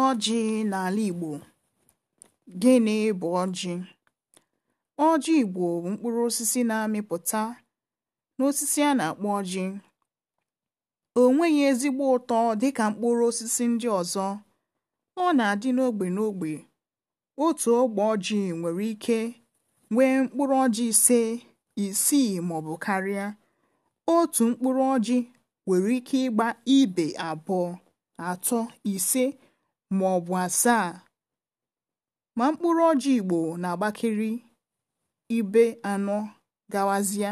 ọjị n'ala Igbo gịnị bụ ọjị ọjị Igbo bụ mkpụrụ osisi na-amịpụta n'osisi a na-akpọ ọjị o nweghị ezigbo ụtọ dịka mkpụrụ osisi ndị ọzọ ọ na-adị n'ogbe n'ogbe otu ogbe ọjị nwere ike nwee mkpụrụ ọjị ise isii maọbụ karịa otu mkpụrụ ọjị nwere ike ịgba ibe abụọ atọ ise ma ọ bụ asaa ma mkpụrụ ọjị Igbo na-agbakiri ibe anọ gawazịa.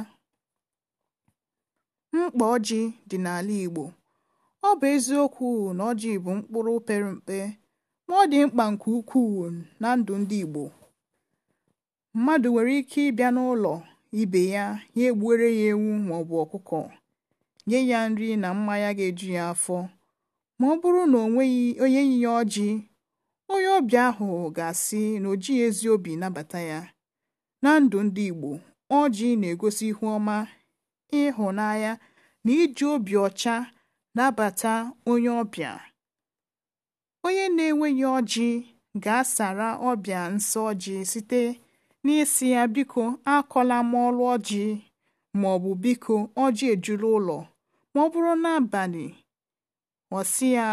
Mkpa ọjị dị n'ala Igbo Ọ bụ eziokwu na ọjị bụ mkpụrụ pere mpe ma ọ dị mkpa nke ukwuu na ndụ ndị Igbo. Mmadụ nwere ike ịbịa n'ụlọ ibe ya ya egbuere ya ewu maọbụ ọkụkọ, nye ya nri na mmanya ga-eju ya afọ ma ọ bụrụ na onweghị onye onye yinye ọjị onye ọbịa ahụ ga-asị na o ezi obi nabata ya na ndụ ndị Igbo ọjị na-egosi ihu ọma ịhụnanya na iji obi ọcha nabata onye ọbịa onye na-enweghị ọjị ga-asara ọbịa nsọ ọjị site n'isi ya biko akọla m ọlụ ọjị ma ọ bụ biko ọjị ejuru ụlọ ma ọ bụrụ n'abalị ghọsị ya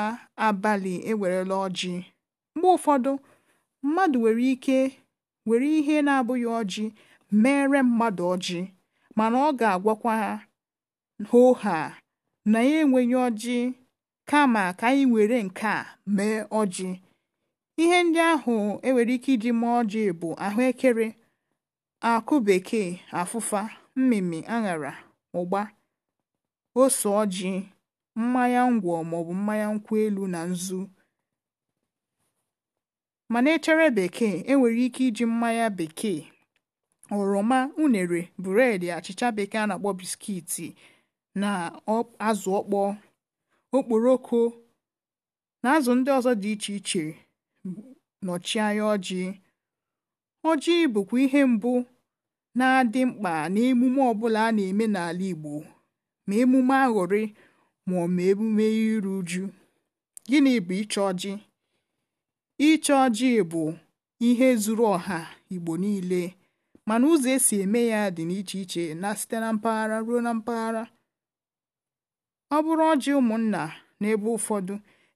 abalị ewerela ọjị mgbe ụfọdụ mmadụ nwere ike were ihe na-abụghị ọjị mere mmadụ ọjị mana ọ ga-agwakwa ha na ya enweghị ọjị kama ka anyị were nke a mee ọjị ihe ndị ahụ enwere ike iji mee ọjị bụ ahụekere akụ bekee afụfa mmịmị aṅara ụgba ose ọjị mmanya ngwọ maọbụ mmanya nkwụ elu na nzu mana echere bekee enwere ike iji mmanya bekee oroma unere bụredi achịcha bekee a na-akpọ biskiti na azụ ọkpọ okporoko na azụ ndị ọzọ dị iche iche nọchie anya ọjị ọjị bụkwa ihe mbụ na-adị mkpa n'emume ọbụla a na-eme n'ala Igbo ma emume aghọrị ma ọ ma emume iru uju. Gịnị bụ iche ọjị? Iche ọjị bụ ihe zuru ọha Igbo niile mana ụzọ esi eme ya dị n'iche iche na site na mpaghara ruo na mpaghara. Ọ bụrụ ọjị ụmụnna n'ebe ụfọdụ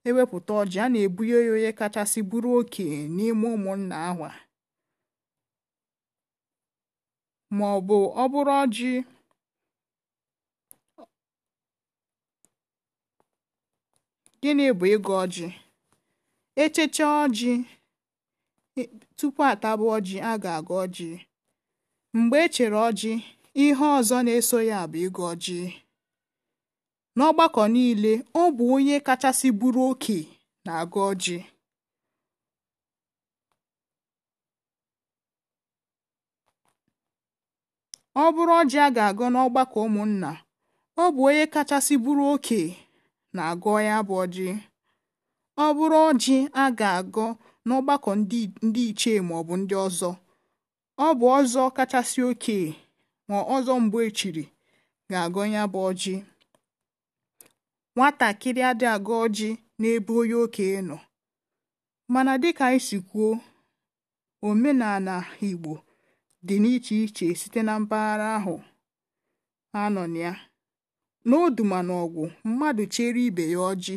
ewepụta ọjị a na-ebunye ya onye kachasị bụrụ oke n'ime ụmụnna ahụ ma ọ ọ ọjị gịnị bụ ịgụ ọjị echecha ọjị e, tupu atabu ọjị a ga agụ ọjị mgbe echere ọjị ihe ọzọ na-eso ya bụ ịgụ ọjị n'ọgbakọ niile ọ bụ onye kachasị buru oke na agụ ọjị ọ bụrụ ọjị a ga agụ n'ọgbakọ ụmụnna ọ bụ onye kachasị buru oke na-agọ ya bụ ọjị ọ bụrụ ọjị a ga agụ n'ọgbakọ ndị ichie maọbụ ndị ọzọ ọ bụ ọzọ kachasị oke ma ọzọ mgbe echiri ga agụ ya bụ ọjị nwatakịrị adị agụ ọjị n'ebe onye oke nọ mana dịka anyị si kwuo omenala Igbo dị n'iche iche site na mpaghara ahụ a nọ na ya N'oduma ọgwụ mmadụ chere ibe ya ọjị,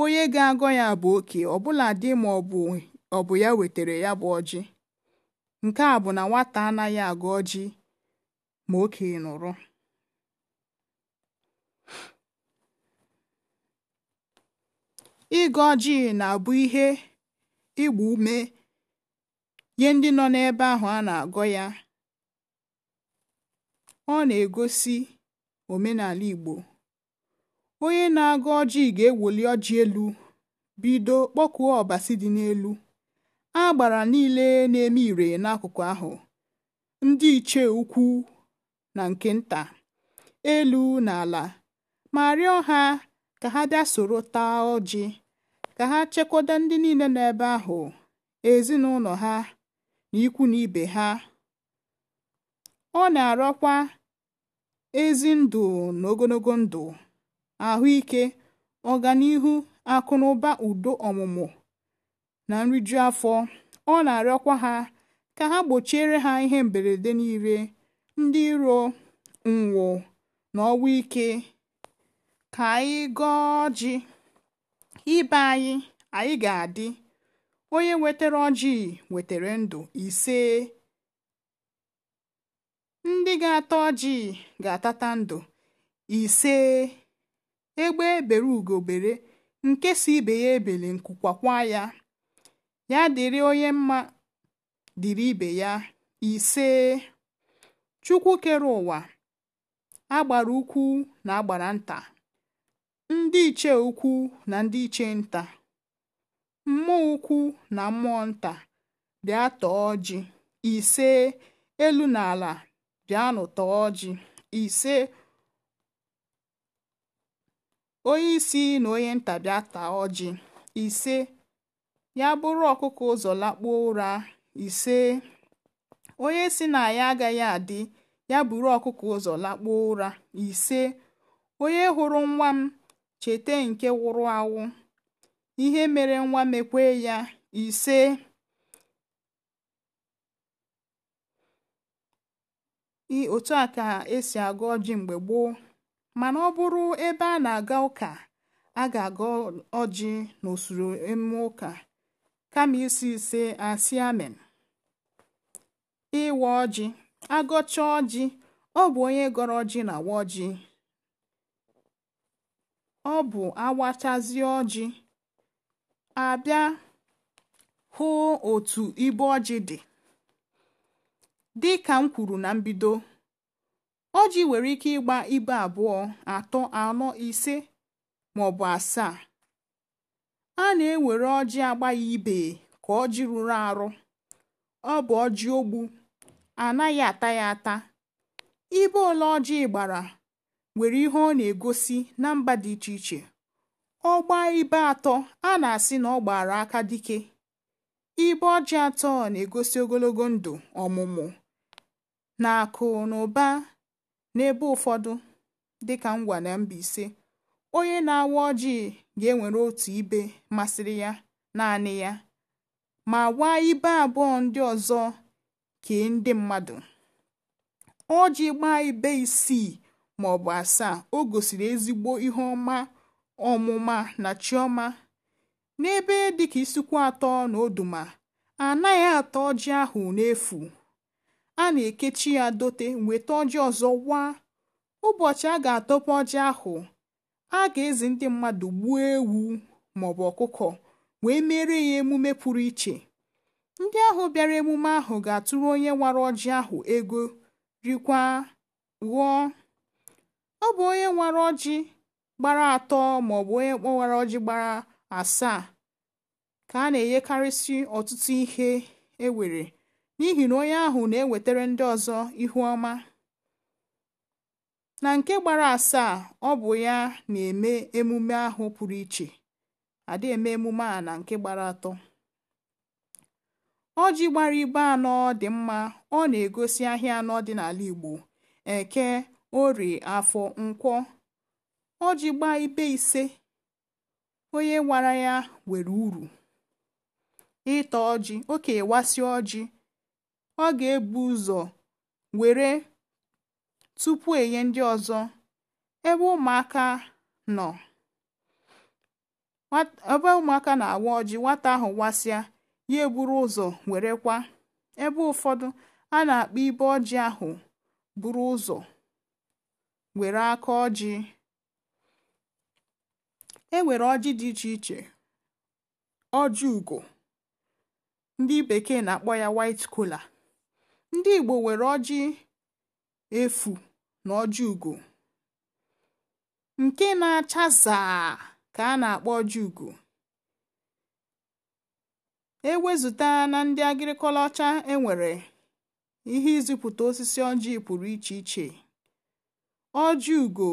onye ga-agọ ya bụ oke ọbụladị ma ọ bụ ya wetere ya bụ ọjị. Nke a bụ na nwata anaghị agọ ọjị ma oke nụrụ. Ịgọ ọjị na-abụ ihe ịgba ume nye ndị nọ n'ebe ahụ a na-agọ ya. Ọ na-egosi omenala Igbo onye na agụ ọjị ga ewoli ọjị elu bido kpọkuo ọbasi dị n'elu agbara niile na-eme ire n'akụkụ ahụ ndị ichie ukwu na nke nta elu na ala ma rịọ ha ka ha bịa soro taa ọjị ka ha chekwada ndị niile nọ ebe ahụ ezinụlọ ha na ikwu na ibe ha ọ na-arịọkwa ezi ndụ na ogologo ndụ ahụike ọganihu akụ udo ọmụmụ na nriju afọ ọ na-arịọkwa ha ka ha gbochiere ha ihe mberede niile ndị iro nwo na ike ka anyị gọọ ji ibe anyị anyị ga-adị onye wetara ọjị wetara ndụ ise ndị ga-ata ọjị ga-atata ndụ ise egbe e bere ugo bere nke si ibe ya ebele nkukwakwa ya ya dịrị onye mma dịrị ibe ya ise chukwu ụwa agbara ukwu na agbara nta ndị iche ukwu na ndị iche nta mmụọ ukwu na mmụọ nta dị atọ ọjị ise elu na ala bịanụ tọọ ọjị ise onye isi na onye nta bịa taa ọjị ise ya bụrụ ọkụkọ ụzọ lakpuo ụra ise onye si na ya agaghị adị ya bụrụ ọkụkọ ụzọ lakpuo ụra ise onye hụrụ nwa m cheta nke wụrụ awụ ihe mere nwa mekwe ya ise otu a ka esi agụ ọjị mgbe gboo mana ọ bụrụ ebe a na-aga ụka a ga-agụ ọjị n'usoro emume ụka kama isi ise asị amen ịwa ọjị agọcha ọjị ọ bụ onye gọrọ ọjị na-awa ọjị ọ bụ awachazi ọjị abịa hụ otu ibe ọjị dị dị ka m kwuru na mbido ọjị nwere ike ịgba ibe abụọ atọ anọ ise maọbụ asaa a na-ewere ọjị agbaghị ibe ka ọjị rụrụ arụ ọ bụ ọjị ogbu anaghị ata ya ata ibe ole ọjị gbara nwere ihe ọ na-egosi na mba dị iche iche ọ gbaa ibe atọ a na-asị na ọ gbara aka dike ibe ọjị atọ na-egosi ogologo ndụ ọmụmụ N'akụ na ụba n'ebe ụfọdụ dịka ngwa na mba ise, onye na-awa ọjị ga enwere otu ibe masịrị ya naanị ya ma waa ibe abụọ ndị ọzọ kee ndị mmadụ. ji gbaa ibe isii maọbụ asaa o gosiri ezigbo ihe ọma ọmụma na chiọma. N'ebe dịka isikwu atọ na Oduma, anaghị atọ ata ọjị ahụ n'efu. a na-ekechi ya dote nweta ọjị ọzọ waa. Ụbọchị a ga atọpụ ọjị ahụ a ga-ezi ndị mmadụ gbuo ewu maọbụ ọkụkọ wee mere ya emume pụrụ iche ndị ahụ bịara emume ahụ ga-atụrụ onye nwara ọjị ahụ ego rikwa ghọọ ọ bụ onye nwara ọjị gbara atọ maọbụ onye nwara ọjị gbara asaa ka a na-enyekarịsị ọtụtụ ihe ewere n'ihi na onye ahụ na-ewetara ndị ọzọ ihu ọma na nke gbara asaa ọ bụ ya na-eme emume ahụ pụrụ iche adị eme emume a na nke gbara atọ ọjị gbara ibe anọ dị mma ọ na-egosi ahịa anọ dị n'ala Igbo eke ori afọ nkwọ ọjị gbaa ibe ise onye wara ya were uru ịta ọjị oke wasi ọjị ọ ga-ebu ụzọ were tupu enye ndị ọzọ ebe ụmụaka nọ ebe ụmụaka na-awa ọjị nwata ahụ wasịa ya eburu ụzọ werekwa ebe ụfọdụ a na-akpọ ibe ọjị ahụ buru ụzọ were aka ọjị e nwere ọjị dị iche iche ọjị ugo ndị bekee na-akpọ ya white kola ndị Igbo nwere ọjị efu na ọjị ugo nke na-acha zaa ka a na-akpọ ọjị ugo ewezụta na ndị agịrịkọla ọcha enwere ihe ịzụpụta osisi ọjị pụrụ iche iche ọjị ugo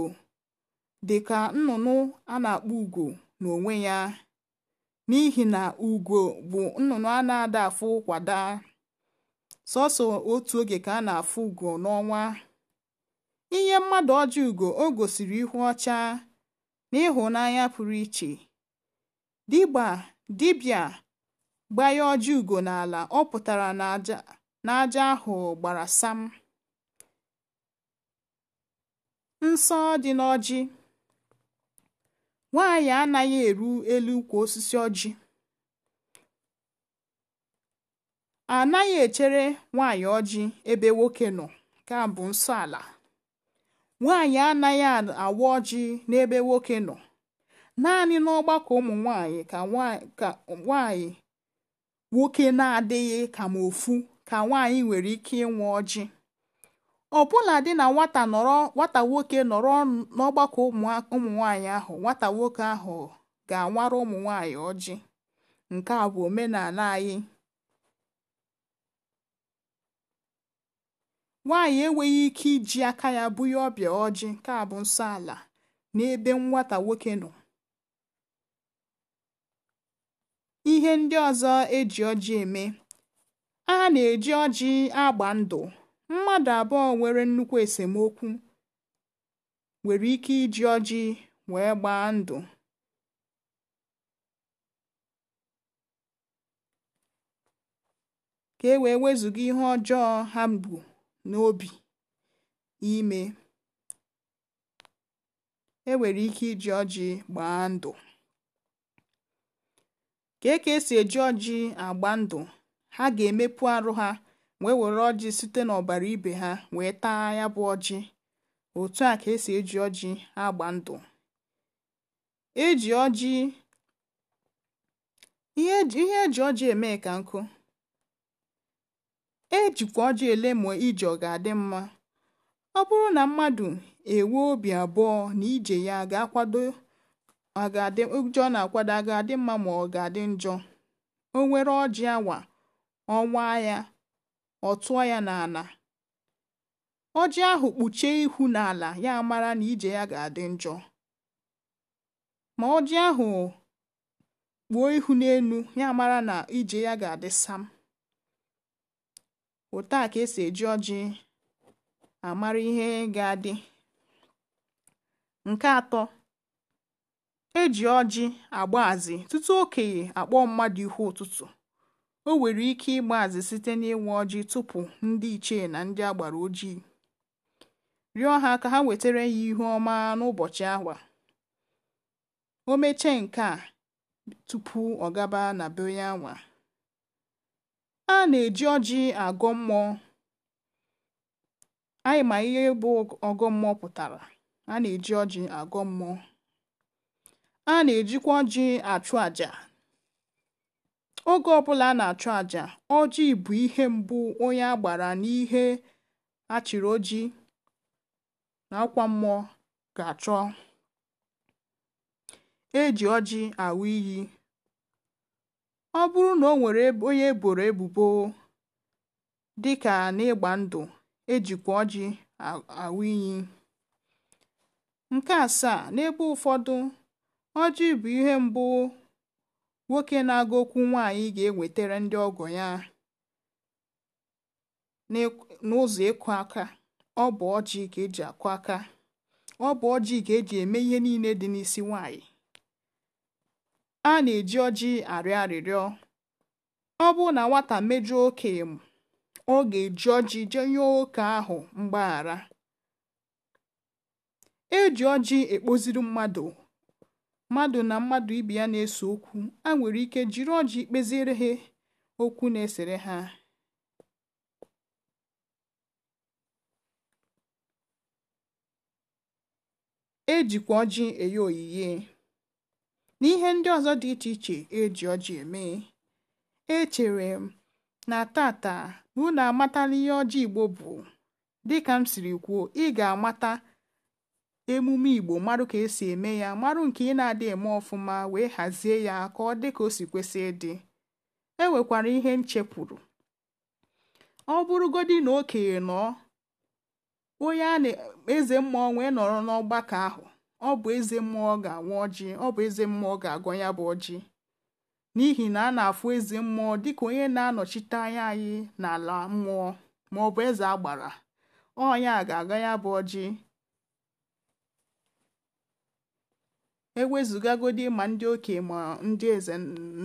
dị ka nnụnụ a na-akpọ ugo n'onwe ya n'ihi na ugo bụ nnụnụ a na-ada kwada sọsọ otu oge ka a na-afụ ugo n'ọnwa ihe mmadụ ọjọ ugo o gosiri ihu ọcha na ịhụnanya pụrụ iche dịgba gbanye ọjọ ugo n'ala ọ pụtara na ahụ gbara sam nsọ dị n'ọjị nwaanyị anaghị eru elu ukwu osisi ọjị a naghị echere nwaanyị ọjị ebe nwoke nọ nke a bụ nsọ ala nwaanyị anaghị awa ọjị n'ebe nwoke nọ naanị n'ọgbakọ ụmụ nwaanyị ka nwaanyị nwoke na-adịghị ka ma ofu ka nwaanyị nwere ike ịnwa ọjị ọbụla dị na nwata nọrọ nwata nwoke nọrọ n'ọgbakọ ụmụ nwaanyị ahụ nwata nwoke ahụ ga-anwara ụmụ nwaanyị ọjị nke a bụ omenala anyị Nwaanyị enweghị ike iji aka ya bunye ọbịa ọjị nsọ ala n'ebe nwata nwoke nọ. Ihe ndị ọzọ eji ọjị eme. A na-eji ọjị agba ndụ. Mmadụ abụọ nwere nnukwu esemokwu nwere ike iji ọjị wee gbaa ndụ. Ka e wee wezụga ihe ọjọọ ha bu. n'obi ime, enwere ike iji ọjị gbaa ndụ. ka e ka esi eji ọjị agba ndụ, ha ga-emepụ arụ ha wee were ọjị site n'ọbara ibe ha wee taa ya bụ ọjị. Otu a ka esi eji ọjị agba ndụ. E ihe eji e ọjị eme ka nkụ ejikwa ọjọọ ma ije ọ ga-adị mma ọ bụrụ na mmadụ enwe obi abụọ na ije ya ga-akwado ụjọ na-akwado ga-adị mma ma ọ ga-adị njọ o nwere ọjị awa ọnwa ya ọ tụọ ya n'ala ọjị ahụ kpuchie ihu n'ala ya amara na ije ya ga-adị njọ ma ọjị ahụ kpuo ihu n'elu ya mara na ije ya ga-adị sam otu a ka esi eji ọjị amara ihe ga-adị nke atọ eji ọjị azị tutu okenye akpọ mmadụ ihu ụtụtụ o nwere ike ịgbazị site n'ịnwe ọjị tupu ndị ichie na ndị agbara ojii rịọ ha ka ha wetara ya ihu ọma n'ụbọchị ahụ o mechee nke a tupu ọ gaba na be onye anwa a na-eji ọjị agọ mmụọ anyị ma ihe bụ ọgọ mmụọ pụtara a na-eji ọjị agọ mmụọ a na-ejikwa ọjị achụ àjà oge ọbụla a na-achụ àjà ọjị bụ ihe mbụ onye a gbara n'ihe chịrị oji na akwa mmụọ ga-achọ eji ọjị awụ iyi ọ bụrụ na o nwere onye eboro ebubo dịka n'ịgba ndụ ejikwa ọjị awụ iyi nke asaa n'ebe ụfọdụ ọjị bụ ihe mbụ nwoke na-agụ okwu nwaanyị ga-ewetara ndị ọgọ ya n'ụzọ ịkụ aka ọ bụ ọjị ka eji akụ aka ọ bụ ọjị ka eji eme ihe niile dị n'isi nwaanyị a na-eji ọjị arịọ arịrịọ. Ọ bụrụ na nwata mejọọ oke ọ ga-eji ọjị jee yọọ oke ahụ mgbaghara. eji ọjị ekpoziri mmadụ. Mmadụ na mmadụ ibi ya na-ese okwu, a nwere ike jiri ọjị kpeziere ha okwu na-esere ha. ejikwa ọjị enye oyiye. na ihe ndị ọzọ dị iche iche eji ọjị eme echere m na tata na unu amatala ihe ọjị Igbo bụ dịka m siri kwuo ị ga-amata emume Igbo marụ ka esi eme ya marụ nke ị na-adị eme ọfụma wee hazie ya ka ọ dị ka o si kwesị ịdị e nwekwara ihe nchepụrụ ọ bụrụgodi na okenye nọ onye a na-eze mma wee nọrọ n'ọgbakọ ahụ ọ bụ eze mmụọ ga-awa ọjị ọ bụ eze mmụọ ga-agọ ya bụ ọjị n'ihi na a na-afụ eze mmụọ dịka onye na-anọchite anya anyị n'ala mmụọ ma ọ bụ eze agbara ọnya ga-aga ya bụ ọjị ewezụgagodi ma ndị okenye ma ndị eze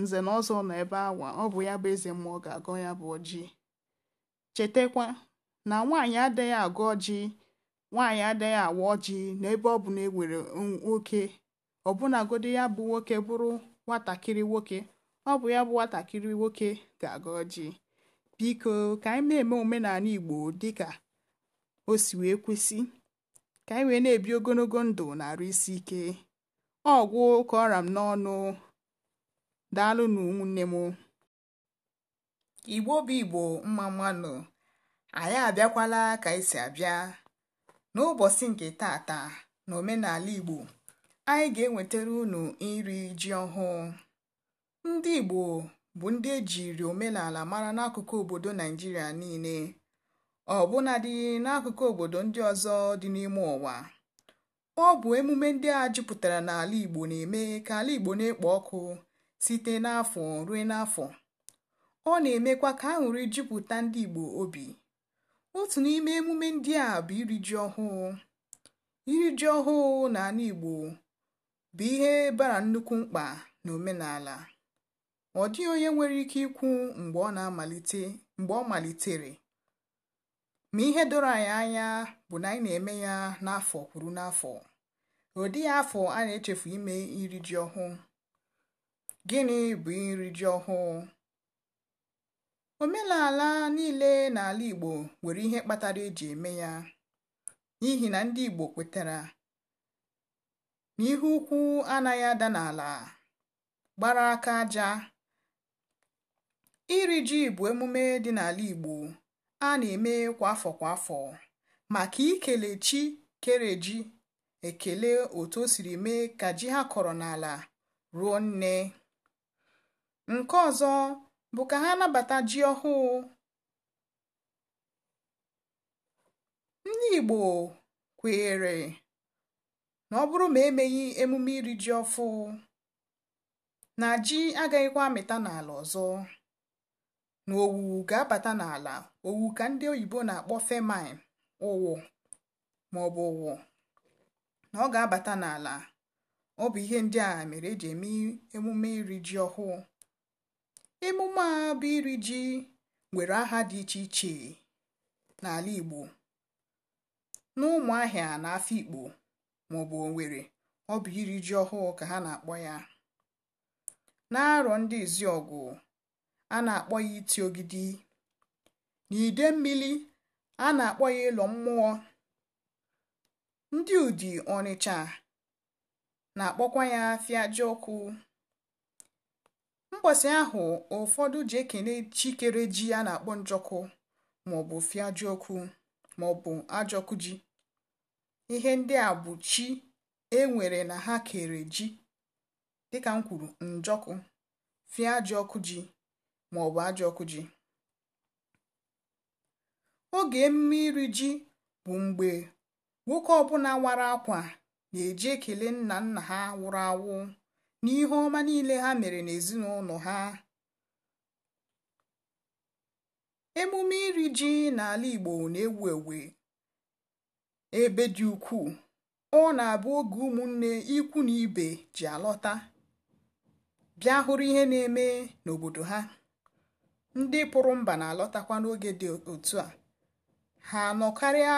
nze na ọzọ nọ ebe awa ọ bụ ya bụ eze mmụọ ga-agọ ya bụ ọjị chetakwa na nwaanyị adịghị agọ ọjị nwaanyị adịghị awa ọjị n'ebe ọ bụ na ewere nwoke ọbụnagodi ya bụ nwoke bụrụ nwatakịrị nwoke ọ bụ ya bụ nwatakịrị nwoke ga-aga ọjị biko ka anyị na-eme omenala igbo dịka o si wee kwesị ka anyị wee na-ebi ogologo ndụ na-arụ isi ike ọgwụ ka ọra m n'ọnụ daalụ na ụmụnne m igbo bụ igbo mma mmanụ anyị abịakwala ka anyị si abịa n'ụbọchị nke tata na omenala igbo anyị ga-ewetara unu iri ji ọhụụ ndị igbo bụ ndị ejiri omenala mara n'akụkụ obodo naijiria niile ọbụnadị n'akụkụ obodo ndị ọzọ dị n'ime ụwa ọ bụ emume ndị a jupụtara n'ala igbo na-eme ka ala igbo na-ekpo ọkụ site n'afọ ruo n'afọ ọ na-emekwa ka aṅụrị jupụta ndị igbo obi otu n'ime emume ndị a bụ iri ji ọhụụ iri ji ọhụụ na ala Igbo bụ ihe bara nnukwu mkpa na omenala ọ dịghị onye nwere ike ikwu mgbe ọ na-amalite mgbe ọ malitere ma ihe doro anyị anya bụ na anyị na-eme ya n'afọ kwuru n'afọ ọ dịghị afọ a na-echefu ime iri ji ọhụụ gịnị bụ iri ji ọhụụ omenala niile n'ala igbo nwere ihe kpatara eji eme ya n'ihi na ndị igbo kwetara na ihe ukwu anaghị ada n'ala gbara aka aja iri ji bụ emume dị n'ala igbo a na-eme kwa afọ kwa afọ maka ikele chi kere ji ekele otu o siri mee ka ji ha kọrọ n'ala ruo nne nke ọzọ bụ ka ha nabata ji ọhụụ ndị Igbo kweere na ọ bụrụ ma emeghị emume iri ji ọfụ na ji agaghịkwa amịta n'ala ọzọ na owu ga-abata n'ala owu ka ndị oyibo na-akpọ femin ụwụ ma ọ bụ ụwụ na ọ ga-abata n'ala ọ bụ ihe ndị a mere eji eme emume iri ji ọhụụ emume a bụ iri ji nwere aha dị iche iche n'ala Igbo n'ụmụahịa na Afikpo maọbụ onwere ọ bụ iri ji ọhụụ ka ha na-akpọ ya n'arọ ndị ọgụ a na-akpọ ya iti ogidi n'ide mmiri a na-akpọ ya ịlọ mmụọ ndị Udi Ọnịcha na-akpọkwa ya afịa ọkụ mgbasị ahụ ụfọdụ ji ekene chikere ji a na-akpọ njọkụ maọbụ fiajiọkụ maọbụ ajọkụ ji ihe ndị a bụ chi enwere na ha kere ji dịka m kwuru njọkụ fiajiọkụ ji maọbụ ajọkụ ji oge emume iri ji bụ mgbe nwoke ọbụla wara akwa na-eji ekele nna nna ha wụrụ awụ n'ihe ọma niile ha mere n'ezinụlọ ha emume iri ji n'ala Igbo na-ewu ewu ebe dị ukwuu ọ na-abụ oge ụmụnne ikwu na ibe ji alọta bịa hụrụ ihe na-eme n'obodo ha ndị pụrụ mba na-alọtakwa n'oge dị otu a ha nọkarịa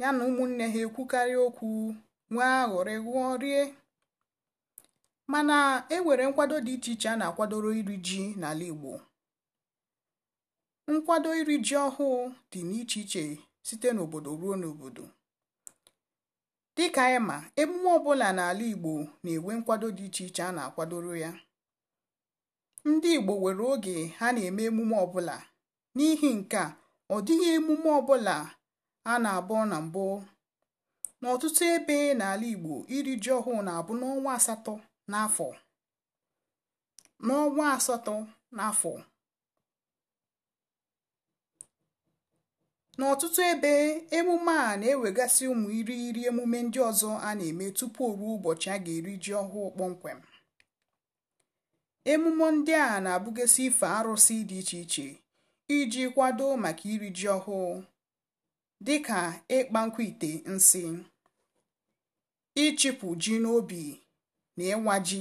ya na ụmụnne ha ekwukarị okwu nwee aghọrị ghụọ rie mana e nwere nkwado dị iche iche a na-akwadoro iri ji n'ala Igbo nkwado iri ji ọhụụ dị n'iche iche site n'obodo ruo n'obodo dịka ịma, emume ọbụla n'ala Igbo na-enwe nkwado dị iche iche a na-akwadoro ya ndị Igbo nwere oge ha na-eme emume ọbụla n'ihi nke ọ dịghị emume ọbụla a na-abụ na mbụ n'ọtụtụ ebe n'ala Igbo iri ji ọhụụ na-abụ n'ọnwa asatọ n'afọ n'ọnwa asatọ n'afọ n'ọtụtụ ebe emume a na-ewegasị ụmụ irighiri emume ndị ọzọ a na-eme tupu ruo ụbọchị a ga-eri ji ọhụụ kpọmkwem emume ndị a na-abụgasị ife arụsị dị iche iche iji kwado maka iri ji ọhụụ dị ka ịkpa nkwa ite nsị ịchịpụ ji n'obi na ịnwa ji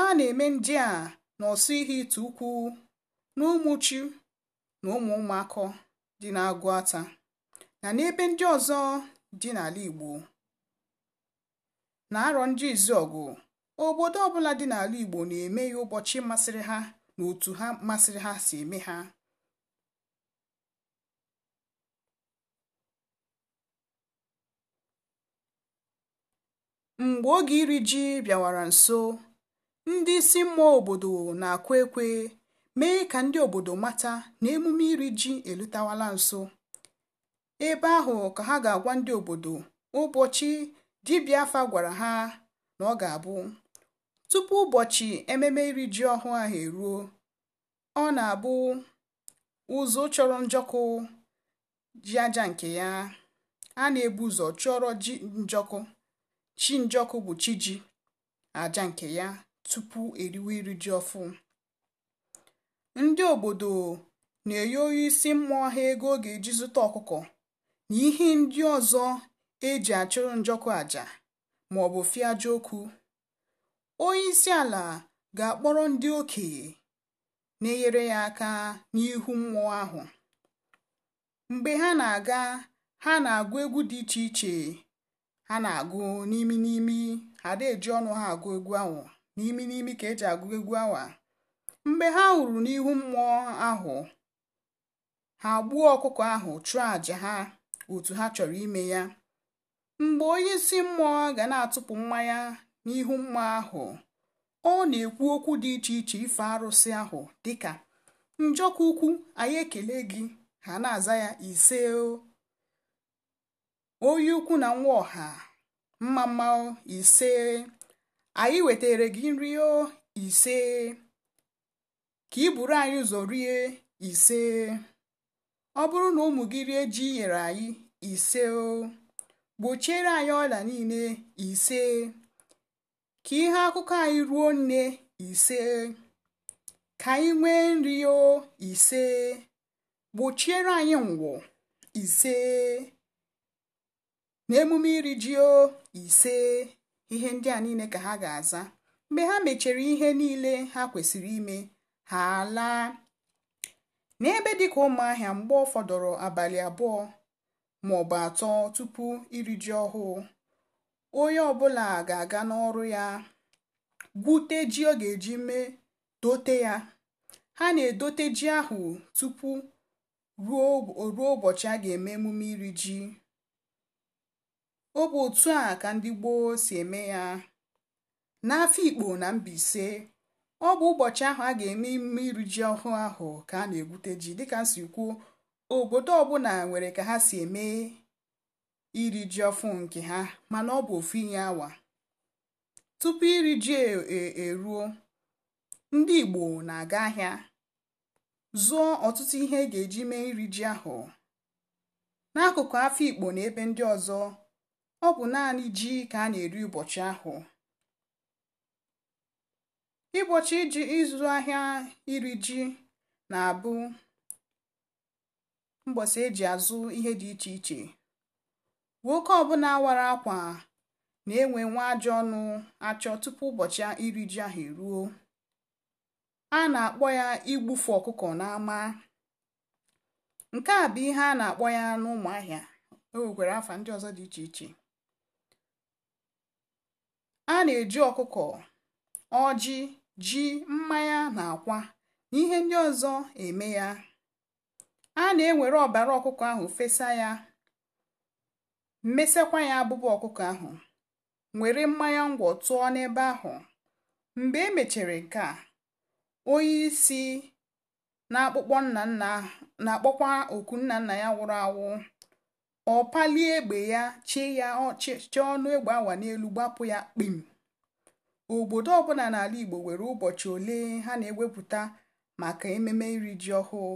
a na-eme ndị a n'ọsọ ihe ite ukwu na ụmụchi na ụmụ ụmụakọ dị n'agụ ata na n'ebe ndị ọzọ dị n'ala Igbo na arọ ndị izu ọgụ obodo ọbụla dị n'ala Igbo na-eme ya ụbọchị masịrị ha na otu ha masịrị ha si eme ha Mgbe oge iri ji bịawara nso, ndị isi mmụọ obodo na-akwa ekwe mee ka ndị obodo mata na emume iri ji elutawala nso. Ebe ahụ ka ha ga-agwa ndị obodo ụbọchị dibịa afa gwara ha na ọ ga-abụ. Tupu ụbọchị ememe iri ji ọhụụ ahụ eruo, ọ na-abụ ụzọ chọrọ njọkụ ji aja nke ya, a na-ebu ụzọ chọrọ ji njọkụ. chi njọkụ bụ chi ji aja nke ya tupu eriwe iri ji ọfụ ndị obodo na-enye onye isi mmụọ ha ego ọ ga-eji zụta ọkụkọ na ihe ndị ọzọ eji achụrụ njọkụ aja ma ọ bụ okwu onye isi ala ga-akpọrọ ndị okenye na-enyere ya aka n'ihu mmụọ ahụ mgbe ha na-aga ha na-agụ egwu dị iche iche ha na-agụ n'imi n'imi ada eji ọnụ ha agụ egwu ahụ n'imi n'imi ka eji agụ egwu awa mgbe ha hụrụ n'ihu mmụọ ahụ ha gbuo ọkụkọ ahụ chụọ àjà ha otu ha chọrọ ime ya mgbe onye isi mmụọ ga na-atụpụ mmanya n'ihu mmụọ ahụ ọ na-ekwu okwu dị iche iche ife arụsị ahụ dịka njọkụ ukwu anyị ekele gị ha na-aza ya ise o Oyi ukwu na nwa ọha mma mma ise anyị wetere gị nri ise ka ị buru anyị ụzọ rie ise ọ bụrụ na ụmụ gị rie ji nyere anyị ise o gbochiere anyị ọla niile ise ka ihe akụkọ anyị ruo nne ise ka anyị nwee nri o ise gbochiere anyị nwụọ ise n'emume iri ji o ise ihe ndị a niile ka ha ga-aza mgbe ha mechara ihe niile ha kwesịrị ime ha laa n'ebe dịka ụmụahịa mgbe ọ fọdụrụ abalị abụọ ma ọ bụ atọ tupu iri ji ọhụụ onye ọbụla ga-aga n'ọrụ ya gwute ji ọ ga-eji mee dote ya ha na-edote ji ahụ tupu ruo ụbọchị a ga-eme emume iri ji ọ bụ otu a ka ndị gboo si eme ya ikpo na Mbaise ọ bụ ụbọchị ahụ a ga-eme ime iri ji ọhụụ ahụ ka a na-egwute ji dịka nsi kwuo obodo ọbụla nwere ka ha si eme iri ji ọfụ nke ha mana ọ bụ ofu inye awa tupu iri ji e, e, eruo ndị Igbo na-aga ahịa zụọ ọtụtụ ihe e ga-eji mee iri ji ahụ n'akụkụ Afikpo na ebe ndị ọzọ ọ bụ naanị ji ka a na-eri ụbọchị ahụ ụbọchị iji ịzụ ahịa iri ji na-abụ mbọsi eji azụ ihe dị iche iche nwoke ọbụla wara akwa na-enwe nwa ajọ ọnụ achọ tupu ụbọchị iri ji ahụ eruo a na-akpọ ya igbufu ọkụkọ n'ama nke a bụ ihe a na-akpọ ya n'ụmụahịa o e nwekwara afa ndị ọzọ dị iche iche a na-eji ọkụkọ ọjị ji mmanya na akwa na ihe ndị ọzọ eme ya a na-ewere ọbara ọkụkọ ahụ fesa ya mmesekwa ya abụba ọkụkọ ahụ were mmanya ngwọ tụọ n'ebe ahụ mgbe e mechara nke a onye isi na-akpọkwa oku nna nna ya nwụrụ anwụ ọ palie egbe ya chi ya ọchịchị ọnụ egbe awa n'elu gbapụ ya kpim obodo ọbụla n'ala Igbo nwere ụbọchị ole ha na-ewepụta maka ememe iri ji ọhụụ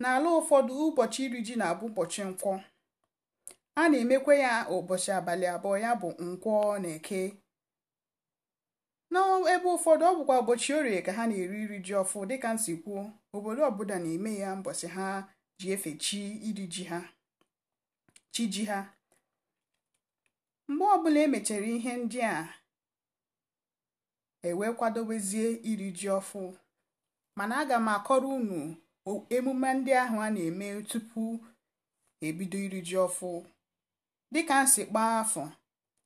n'ala ụfọdụ ụbọchị iri ji na-abụ ụbọchị nkwọ a na-emekwa ya ụbọchị abalị abụọ ya bụ nkwọ na eke n'ebe ụfọdụ ọ bụkwa ụbọchị orie ka ha na-eri iri ji ọfụ dịka nsi kwuo obodo ọbụla na-eme ya mbọsị ha ji efe chi iri ji ha chi ji ha mgbe ọbụla emechara ihe ndị a ewee kwadobezie iri ji ọfụ mana aga m akọrọ unu emume ndị ahụ a na-eme tupu ebido iri ji ọfụ dịka nsi kpaa afọ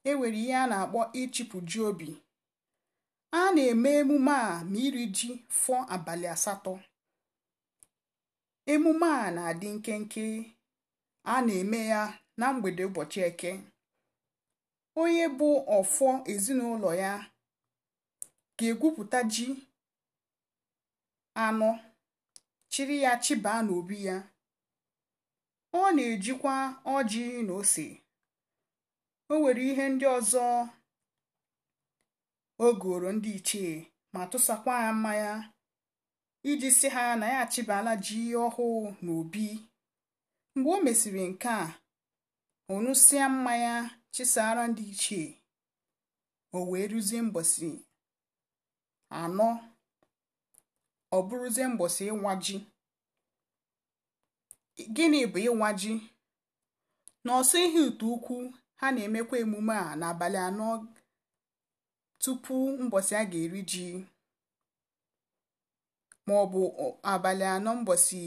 e nwere ihe a na-akpọ ịchịpụ ji obi a na-eme emume a ma iri ji fọ abalị asatọ emume a na-adị nkenke a na-eme ya na mgbede ụbọchị eke onye bụ ọfọ ezinụlọ ya ga-egwupụta ji anọ chiri ya chibaa n'obi ya ọ na-ejikwa ọjị na ose o nwere ihe ndị ọzọ o goro ndị ichie ma tụsakwa ya mmanya iji si ha na ya achịbala ji ọhụụ obi. mgbe o mesịrị nke a ọṅụsịa mmanya chisara ndị ichie o wee ruzie mbọsị anọ ọ bụrụzie mbọsị ịwa ji gịnị bụ ịwa ji n'ọsọ ihe ute ukwu ha na-emekwa emume a n'abalị anọ tupu mbọsị a ga-eri ji ma ọ bụ abalị anọ mbọsị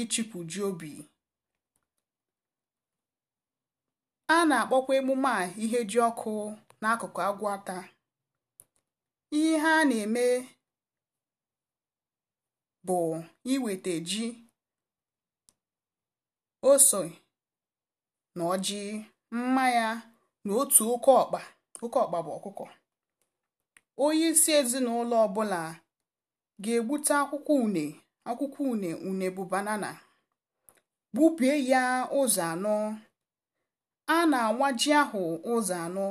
ịchịpụ ji obi a na-akpọkwa emume a ihe ji ọkụ n'akụkụ Agwata. Ihe a na-eme bụ iweta ji, ose na ọjị, mmanya na otu oke ọkpa oke ọkpa bụ ọkụkọ. Onye isi ezinụlọ ọbụla ga-egbute akwụkwọ une akwụkwọ une une bụ banana gbubie ya ụzọ anọ a na-anwa ji ahụ ụzọ anọ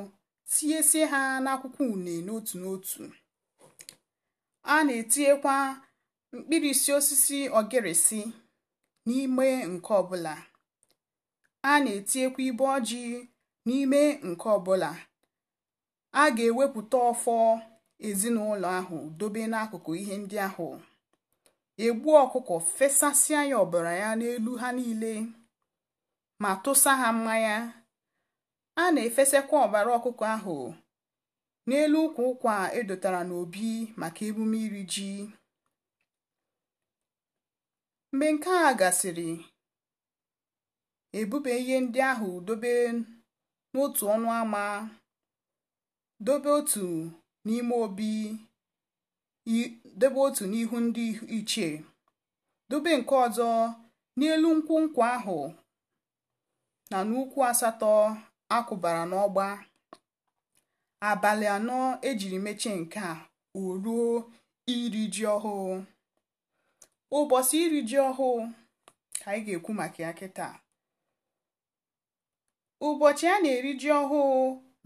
tinyesie ha n'akwụkwọ une n'otu n'otu a na-etinyekwa mkpirisi osisi ogerisi n'ime nke ọbụla a na-etinyekwa ibe ọjị n'ime nke ọbụla a ga-ewepụta ọfọ ezinụlọ ahụ dobe n'akụkụ ihe ndị ahụ egbu ọkụkọ fesasịa ya ọbara ya n'elu ha niile ma tụsa ha mmanya a na efesekwa ọbara ọkụkọ ahụ n'elu ụkwụ ụkwa edotara n'obi maka emume iri ji mgbe nke a gasịrị ebube ihe ndị ahụ dobe n'otu ọnụ ama dobe otu n'ime obi dobe otu n'ihu ndị ichie dobe nke ọzọ n'elu nkwụ nkwụ ahụ na n'ukwu asatọ akwụbara n'ọgba abalị anọ ejiri mechie nke a o ruo iri ji ọhụụ ụbọchị iri ji ọhụụ ka anyị ga-ekwu maka ya kịta ụbọchị a na-eri ji ọhụụ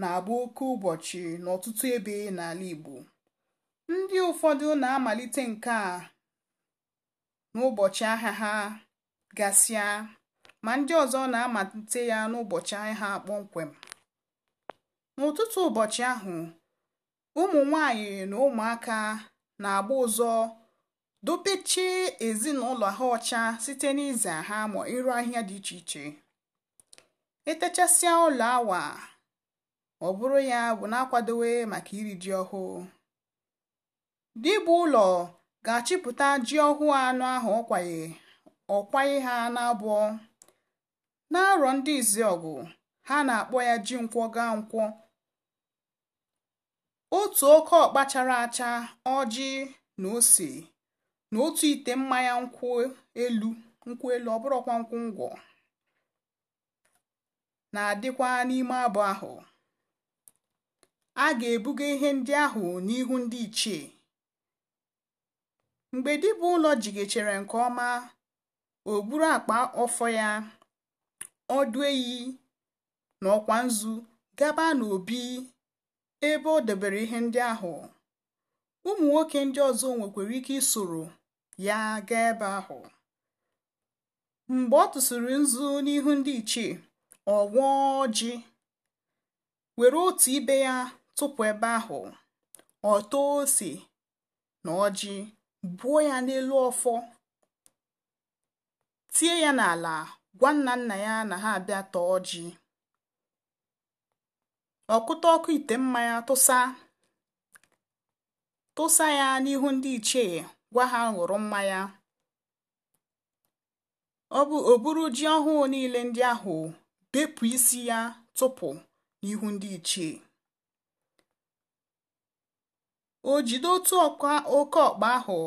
na-abụ oke ụbọchị n'ọtụtụ ebe n'ala Igbo ndị ụfọdụ na-amalite nke a n'ụbọchị ahịa ha gasịa ma ndị ọzọ na-amalite ya n'ụbọchị ha kpọmkwem n'ụtụtụ ụbọchị ahụ ụmụ nwanyị na ụmụaka na-agba ụzọ dopechi ezinụlọ ha ọcha site n'ize ha ma ịrụ ahịa dị iche iche etechasịa ụlọ awa ọ bụrụ ya bụ na-akwadowe maka iri ji ọhụụ dibụ ụlọ ga-achịpụta ji ọhụụ anụ ahụ ọkwaye ọkwaye ha n'abụọ n'arọ ndị izi ọgụ ha na-akpọ ya ji nkwọ gaa nkwọ otu oke ọkpa chara acha ọjị na ose na otu ite mmanya nkwụ elu nkwụ elu ọbụrụkwa nkwụ ngwọ na-adịkwa n'ime abụ ahụ a ga-ebuga ihe ndị ahụ n'ihu ndị ichie mgbe bụ ụlọ jigechere nke ọma o buru akpa ọfọ ya ọdụ eyi na ọkwa nzu gaba n'obi ebe o dobere ihe ndị ahụ ụmụ nwoke ndị ọzọ nwekwara ike isoro ya gaa ebe ahụ mgbe ọ tụsịrị nzu n'ihu ndị ichie ọ gwọọ ọjị were otu ibe ya tụpụ ebe ahụ ọ ose na ọjị buo ya n'elu ọfọ tie ya n'ala gwa nna nna ya na ha abịa tọọ ọjị ọkụta ọkụ ite mmanya tụsa tụsa ya n'ihu ndị ichie gwa ha ṅụrụ mmanya ọ bụ oburu ji ọhụụ niile ndị ahụ bepụ isi ya tụpụ n'ihu ndị ichie o jide otu oke ọkpa ahụ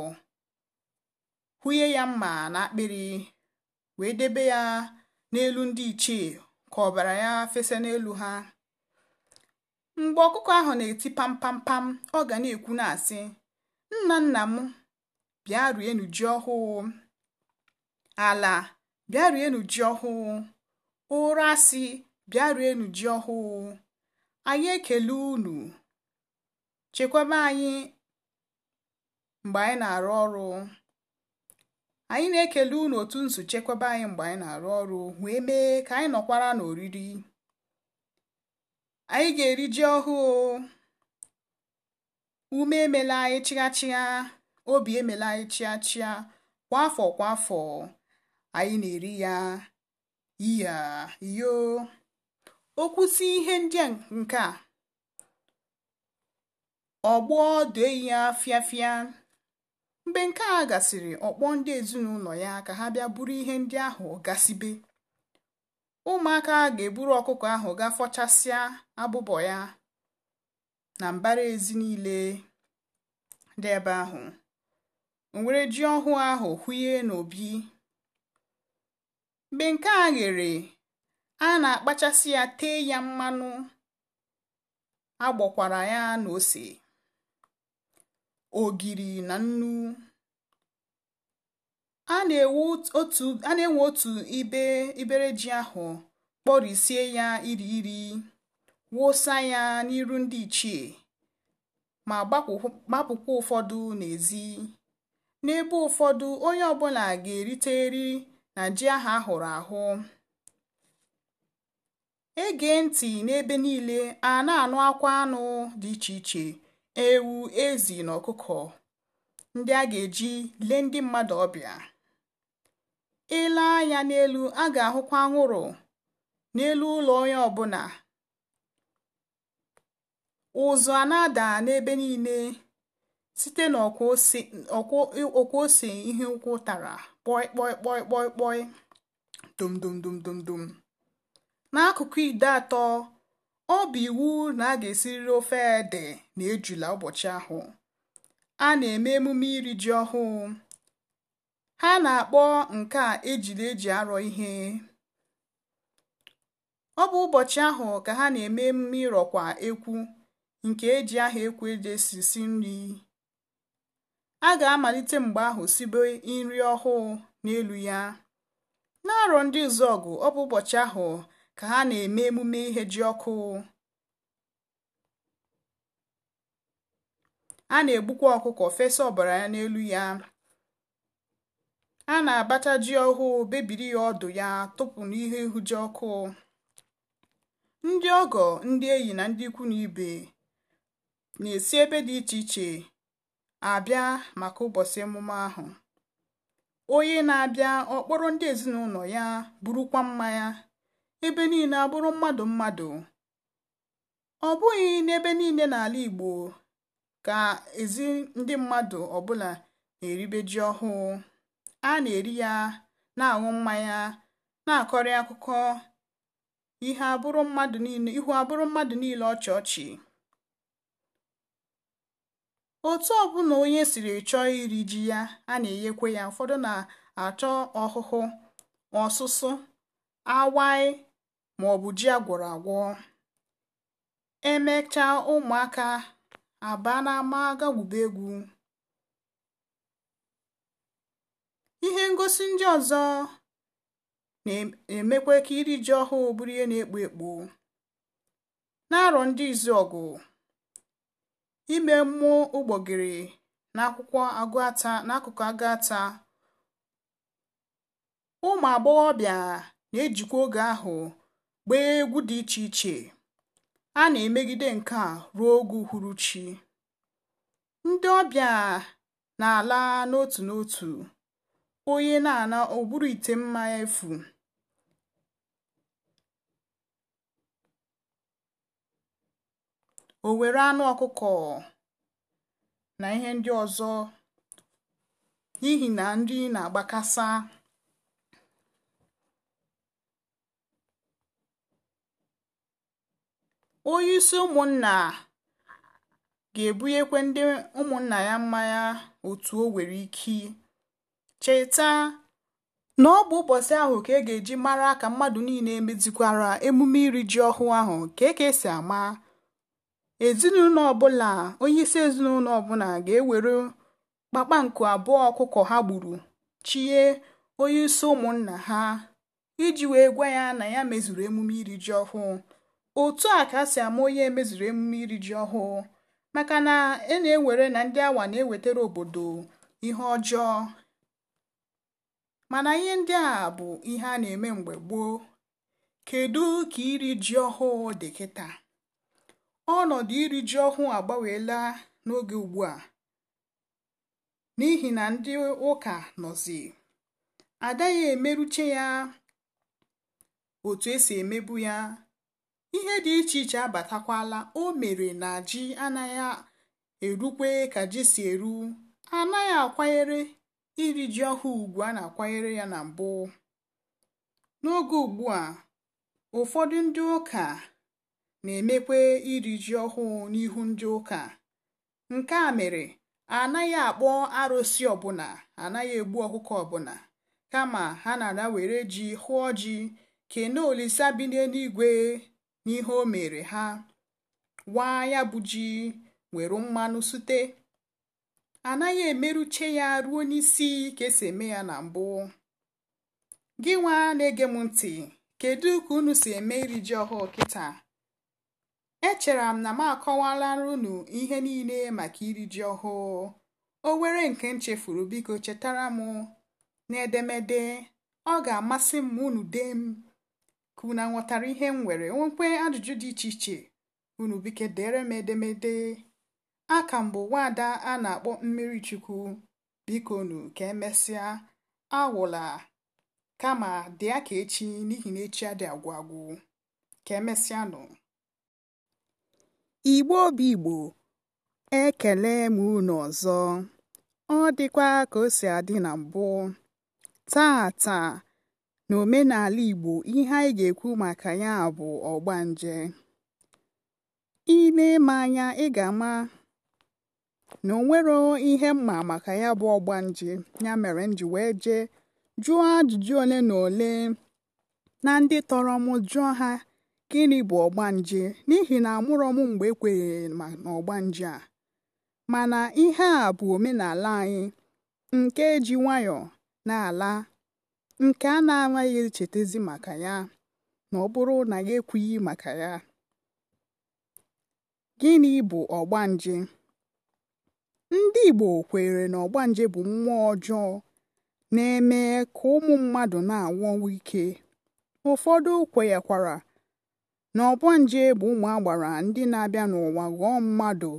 hụnye ya mma na akpịrị wee debe ya n'elu ndị ichie ka ọbara ya fesa n'elu ha mgbe ọkụkọ ahụ na-eti pampampam ọ ga na-ekwu na-asị nna nna m bịa rienu ji ọhụụ ala bịa rienu ji ọhụụ ụra asị bịa rienu ji ọhụụ anyị ekele unu chekwaba anyị mgbe anyị na-arụ ọrụ anyị na-ekele unu otu chekwaba anyị mgbe anyị na-arụ ọrụ wee mee ka anyị nọkwara n'oriri anyị ga-eri ji ọhụụ ume emela anyị chịghachịgha obi emela anyị chighachia kwa afọ kwa afọ anyị na-eri ya iya yo okwusi ihe ndị nke a ọgbọ dee ya fịafịa mgbe nke a gasịrị ọkpọ ndị ezinụlọ ya ka ha bịa buru ihe ndị ahụ gasịbe ụmụaka ga-eburu ọkụkọ ahụ ga fọchasịa abụbọ ya na mbara ezi niile dị ebe ahụ o ji ọhụụ ahụ hụye n'obi mgbe nke a ghere a na-akpachasị ya tee ya mmanụ agbọkwara ya na ose ogiri na nnu a na-enwe otu ibe ibere ji ahụ kpọrisie ya iri iri wụsa ya n'iru ndị ichie ma gbapụkwa ụfọdụ n'ezi n'ebe ụfọdụ onye ọbụla ga-erite eri na ji ahụ ahụrụ ahụ ege ntị n'ebe niile a na-anụ akwa anụ dị iche iche ewu ezi na ọkụkọ ndị a ga-eji lee ndị mmadụ ọbịa ile anya n'elu a ga-ahụkwa anwụrụ n'elu ụlọ onye ọbụla ụzụ a na-ada n'ebe niile site n'ọkwa ose ihe ụkwụ tara kpọi dum dum dum dum dum n'akụkụ ide atọ ọ bụ iwu na a ga-esiriri ofe ede na ejula ụbọchị ahụ. A na-eme emume iri ji ọhụụ. Ha na-akpọ nke a ejiri eji arọ ihe. Ọ bụ ụbọchị ahụ ka ha na-eme emume ịrọkwa ekwu nke eji aha ekwu eji nri. A ga-amalite mgbe ahụ sibe nri ọhụụ n'elu ya. N'arọ ndị Izuọgụ, ọ bụ ụbọchị ahụ ka ha na-eme emume ihe ji ọkụ. A na-egbukwa ọkụkọ fesa ọbara ya n'elu ya. A na-abacha ji ọhụụ bebiri ya ọdụ ya tụpụ n'ihe ji ọkụ. Ndị ọgọ, ndị enyi na ndị ikwu na ibe na-esi ebe dị iche iche abịa maka ụbọchị emume ahụ. Onye na-abịa ọkpọrọ ndị ezinụlọ ya burukwa mmanya ebe niile abụrụ mmadụ mmadụ ọ bụghị n'ebe niile n'ala Igbo ka ezi ndị mmadụ ọbụla na-eribe ji ọhụụ a na-eri ya na-aṅụ mmanya na-akọrị akụkọ ihu abụrụ mmadụ niile ọchị ọchị otu ọbụla onye siri chọọ iri ji ya a na-enyekwa ya ụfọdụ na-achọ ọhụhụ ọsụsụ awaị Ma ọ bụ ji agwọrọ agwọ emechaa ụmụaka aba n'ama gagwube egwu ihe ngosi ndị ọzọ na-emekwa ka iri ji ọhụụ bụrụ ihe na-ekpo ekpo na-arọ ndị izu ọgụ ime mmụọ ụgbọgịrị n'akwụkwọ agụata n'akụkụ agụata ụmụ agbọghọbịa na-ejikwa oge ahụ gbaa egwu dị iche iche a na-emegide nke a ruo oge uhuruchi. Ndị ọbịa na-ala n'otu n'otu, onye na-ana ụbụrụ bụrụ ite mmanya efu. O were anụ ọkụkọ na ihe ndị ọzọ n'ihi na nri na-agbakasa. onyeisi ụmụnna ga-ebunyekwa ndị ụmụnna ya mmanya otu o nwere ike cheta na ọ bụ ụbọchị ahụ ka e ga-eji mara ka mmadụ niile emezikwara emume iri ji ọhụụ ahụ ka e ka esi ama ezinụlọ ọbụla ezinụlọ ọbụla ga-ewere kpakpanku abụọ ọkụkọ ha gburu chie isi ụmụnna ha iji wee gwa ya na ya mezuru emume iri ji ọhụụ otu a ka a si ama onye mezuru emume iri ji ọhụụ maka na e na-ewere na ndị awa na-ewetara obodo ihe ọjọọ mana ihe ndị a bụ ihe a na-eme mgbe gboo kedu ka iri ji ọhụụ dị kịta ọnọdụ iri ji ọhụụ agbanweela n'oge ugbu a n'ihi na ndị ụka nọzi adaghị emeruche ya otu esi emebu ya ihe dị iche iche abatakwala o mere na ji anaghị erukwe ka ji si eru anaghị akwanyere iri ji ọhụụ ugwu a na-akwanyere ya na mbụ n'oge ugbu a ụfọdụ ndị ụka na-emekwe iri ji ọhụụ n'ihu ndị ụka nke a mere anaghị akpọ arụsị ọbụla anaghị egbu ọkụkọ ọbụla kama ha na-ada were ji hụọ ji kene olisa bi n'eluigwe n'ihe o mere ha waa ya bụ ji nwere mmanụ sute anaghị emeruche ya ruo n'isi ka esi eme ya na mbụ gị nwa na-ege m ntị kedu ka unu si eme iri ji ọhụụ kịta Echere m na m akọwalara unu ihe niile maka iri ji ọhụụ o were nke nchefuru biko chetara m n'edemede ọ ga-amasị m unu dee m ka unu nhọtara ihe m nwere nwekwe ajụjụ dị iche iche unu bike dere m edemede a ka mbụ nwaada a na-akpọ mmiri chukwu biko nu ka emesịa agwụla kama dị aka echi n'ihi na echi adị agwụ agwụ ka nụ. igbo obi igbo ekele m unu ọzọ ọ dịkwa ka o si adị na mbụ taa taa n'omenala Igbo ihe anyị ga-ekwu maka ya bụ ọgbanje ile eme anya ị ga-ama na o ihe mma maka ya bụ ọgbanje ya mere m ji wee jee jụọ ajụjụ ole na ole na ndị tọrọ m jụọ ha gịnị bụ ọgbanje n'ihi na amụrọ m mgbe ekwenyeghị na a mana ihe a bụ omenala anyị nke ji nwayọọ na-ala nke a na-anaghị ezi maka ya na ọ bụrụ na ya ekwughị maka ya gịnị bụ ọgbanje ndị Igbo kwere na ọgbanje bụ mmụọ ọjọọ na-eme ka ụmụ mmadụ na-anwụ ọnwụ ike ụfọdụ kwenyekwara na ọgbanje bụ ụmụ agbara ndị na-abịa n'ụwa ghọọ mmadụ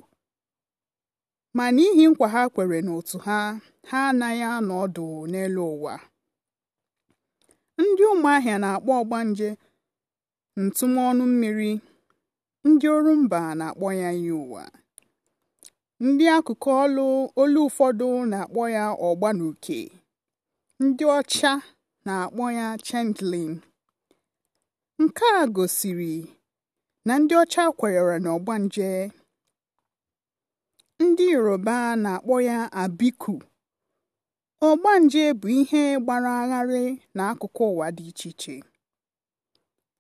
ma n'ihi nkwa ha kwere n'otu ha ha anaghị anọ ọdụ n'elu ụwa ndị ụmụahịa na-akpọ ọgbanje ntụmọnụ mmiri ndị ọrụ mba na-akpọ ya iyi ndị akụkụ olu olu ụfọdụ na-akpọ ya ọgbanuke ndị ọcha na-akpọ ya chendlin nke a gosiri na ndị ọcha kwenyere na ọgbanje ndị yoruba na-akpọ ya abiku Ọgbanje bụ ihe gbara agharị n'akụkụ ụwa dị iche iche.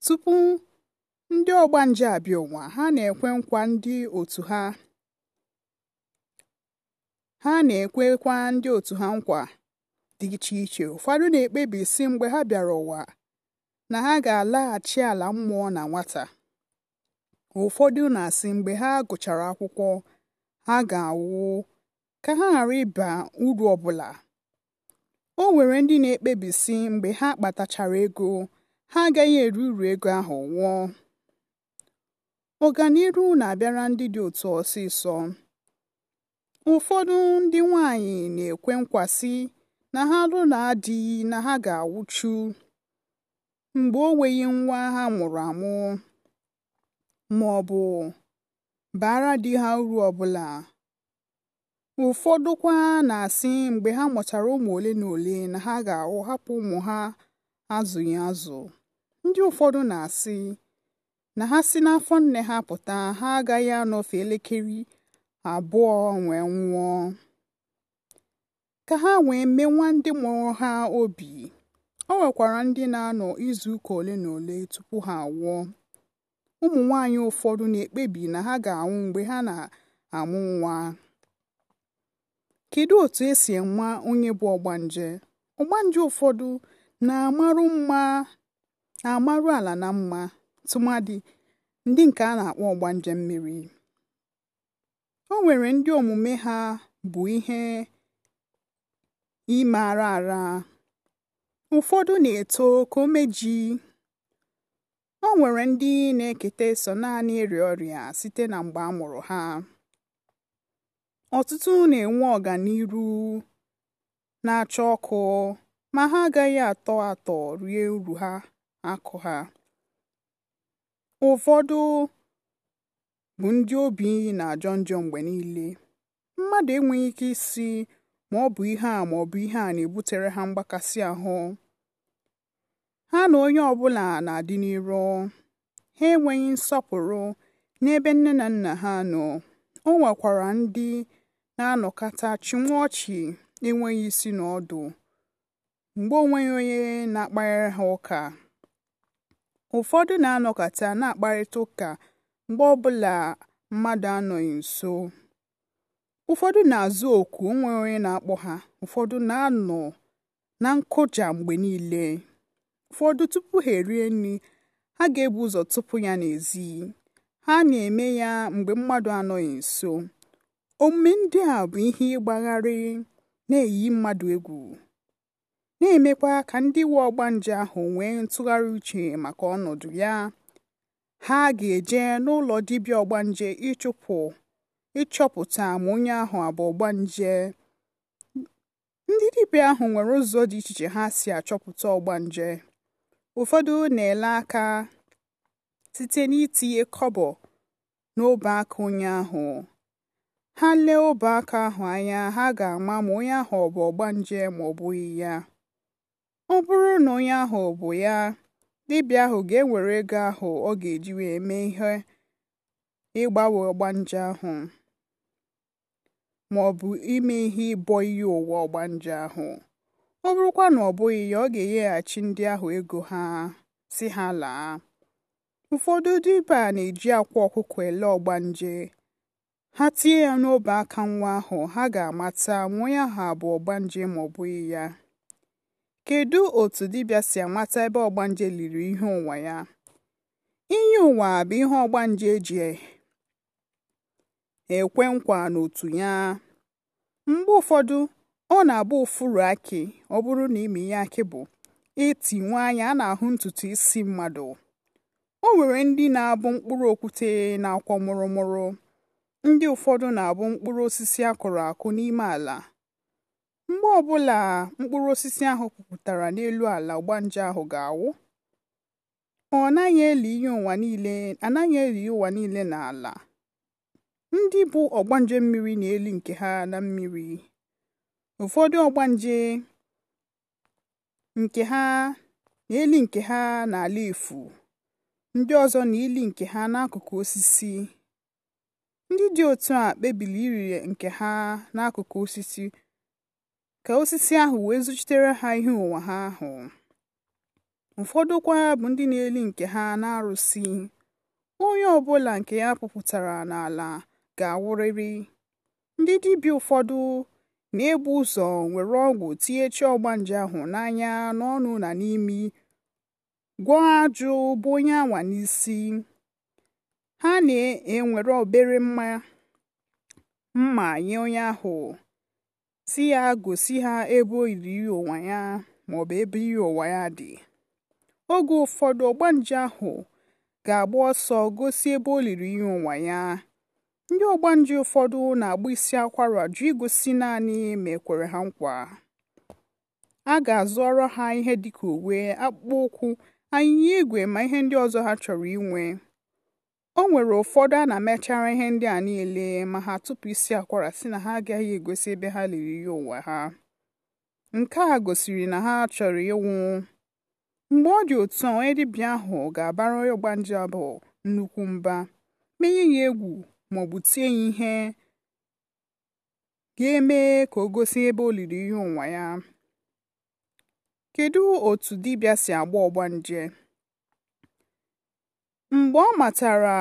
Tupu ndị ọgbanje abịa ụwa, ha na-ekwe nkwa ndị otu ha. na-ekwekwa ndị otu ha nkwa dị iche iche. Ụfọdụ na-ekpebi sị mgbe ha bịara ụwa na ha ga-alaghachi ala mmụọ na nwata. Ụfọdụ na-asị mgbe ha gụchara akwụkwọ, ha ga awụ ka ha ghara ịba uru ọbụla o nwere ndị na-ekpebisi mgbe ha kpatachara ego ha agaghị eru uru ego ahụ nwụọ ọganiru na-abịara ndị dị otu ọsịsọ ụfọdụ ndị nwanyị na-ekwe nkwasị na ha lụ na adịghị na ha ga-awụchu mgbe o nweghị nwa ha mụrụ amụ ma bụ baara di ha uru ọbụla ụfọdụ kwa na-asị mgbe ha mụchara ụmụ ole na ole na ha ga-ahụ hapụ ụmụ ha azụghị azụ ndị ụfọdụ na-asị na ha si n'afọ nne ha pụta ha agaghị anọfe elekere abụọ wee nwụọ ka ha wee nwa ndị mụrụ ha obi o nwekwara ndị na-anọ izu ole na ole tupu ha anwụọ ụmụ nwanyị ụfọdụ na-ekpebi na ha ga-anwụ mgbe ha na-amụ nwa Kedu otu esi enwa onye bụ ọgbanje? Ọgbanje ụfọdụ na-amarụ mma na-amarụ ala na mma tụmadị ndị nke a na-akpọ ọgbanje mmiri. O nwere ndị omume ha bụ ihe ime ara. Ụfọdụ na-eto ka omeji. O nwere ndị na-eketa so naanị ịrịa ọrịa site na mgbe a mụrụ ha. ọtụtụ na-enwe ọganiru na-acha ọkụ ma ha agaghị atọ atọ rie uru ha akụ ha ụfọdụ bụ ndị obi na-ajọ njọ mgbe niile mmadụ enweghị ike isi ma ọ bụ ihe a ma ọ bụ ihe a na-ebutere ha mgbakasị ahụ ha na onye ọbụla na-adị n'iro ha enweghị nsọpụrụ n'ebe nne na nna ha nọ o nwekwara ndị na-anọkata chịnwa ọchị enweghị isi na ọdụ mgbe onweghị onye na-akparịrị ha ụka ụfọdụ na-anọkata na-akparịta ụka mgbe ọbụla mmadụ anọghị nso ụfọdụ na-azụ oku onweghị onye na-akpọ ha ụfọdụ na-anọ na nkụja mgbe niile ụfọdụ tupu ha erie nri ha ga-ebu ụzọ tụpụ ya n'ezi ha na-eme ya mgbe mmadụ anọghị nso omume ndị a bụ ihe ịgbagharị na-eyi mmadụ egwu na-emekwa ka ndị ọgba ọgbanje ahụ nwee ntụgharị uche maka ọnọdụ ya ha ga-eje n'ụlọ dibịa ọgbanje ịchụpụ ịchọpụta ma onye ahụ abụ ọgbanje ndị dibịa ahụ nwere ụzọ dị iche iche ha si achọpụta ọgba nje ụfọdụ na-ele aka site n'itinye kọbọ n'obe aka onye ahụ ha lee ọba aka ahụ anya ha ga-ama ma onye ahụ ọ bụ ọgbanje ma ọ bụghị ya ọ bụrụ na onye ahụ ọ bụ ya dibịa ahụ ga-ewere ego ahụ ọ ga-eji wee mee ihe ịgbanwe ọgbanje ahụ ma ọ bụ ime ihe ịbọ iyi ụwa ọgbanje ahụ ọ bụrụkwa na ọ bụghị ya ọ ga-enyeghachi ndị ahụ ego ha si ha laa ụfọdụ dibịa na-eji akwa ọkụkọ ele ọgbanje ha tinye ya n'obe aka nwa ahụ ha ga-amata ma onye ahụ abụ ọgbanje ma ọ bụghị ya kedu otu dibịa si amata ebe ọgbanje liri ihe ụwa ya inye ụwa bụ ihe ọgbanje ji e, ekwe nkwa n'otu ya mgbe ụfọdụ ọ na-abụ ụfụrụ akị ọ bụrụ na ime ihe akị bụ eti nwa anya a na-ahụ ntutu isi mmadụ o nwere ndị na-abụ mkpụrụ okwute na-akwọ mụrụmụrụ ndị ụfọdụ na-abụ mkpụrụ osisi a kụrụ akụ n'ime ala mgbe ọbụla mkpụrụ osisi ahụ pupụtara n'elu ala ọgbanje ahụ ga-awụ ọ naghị eli ihe ụwa niile anaghị eli ụwa niile n'ala ndị bụ ọgbanje mmiri na-eli nke ha na mmiri ụfọdụ ọgbanje nke ha na-eli nke ha n'ala efu ndị ọzọ na-eli nke ha n'akụkụ osisi Ndị dị otu a kpebiri iri nke ha n'akụkụ osisi, ka osisi ahụ wee zụchitere ha ihe ụwa ha ahụ. Ụfọdụ kwa bụ ndị na-eli nke ha na-arụsi Onye ọbụla nke ya puputara n'ala ga awụrịrị Ndị dibịa ụfọdụ na-ebu ụzọ were ọgwụ tinye ọgba ọgbanje ahụ n'anya, n'ọnụ na n'imi, gwọọ ajụ bụ onye anwa n'isi. ha na-ewere obere mma mma nye onye ahụ si ya gosi ha ebe olili ụwa ya bụ ebe iyi ụwa ya dị oge ụfọdụ ọgbanje ahụ ga-agba ọsọ gosi ebe o liri ihe ụwa ya ndị ọgbanje ụfọdụ na-agba isi akwara jụ igosi naanị ma ekwere ha nkwa a ga-azụọrọ ha ihe dịka uwe akpụkpọ ụkwụ anyịnya igwe ma ihe ndị ọzọ ha chọrọ inwe o nwere ụfọdụ a na-emechara ihe ndị a niile ma ha tupu isi akwara si na ha agaghị egosi ebe ha liri ihe ụwa ha nke a gosiri na ha chọrọ ịnwụ mgbe ọ dị otu a onye dibịa ahụ ga-abara onye nje abụ nnukwu mba menye ya egwu ma ọ bụ tie ya ihe ga-eme ka o gosi ebe o liri ihe ụwa ya kedu otu dibịa si agba ọgbanje Mgbe ọ matara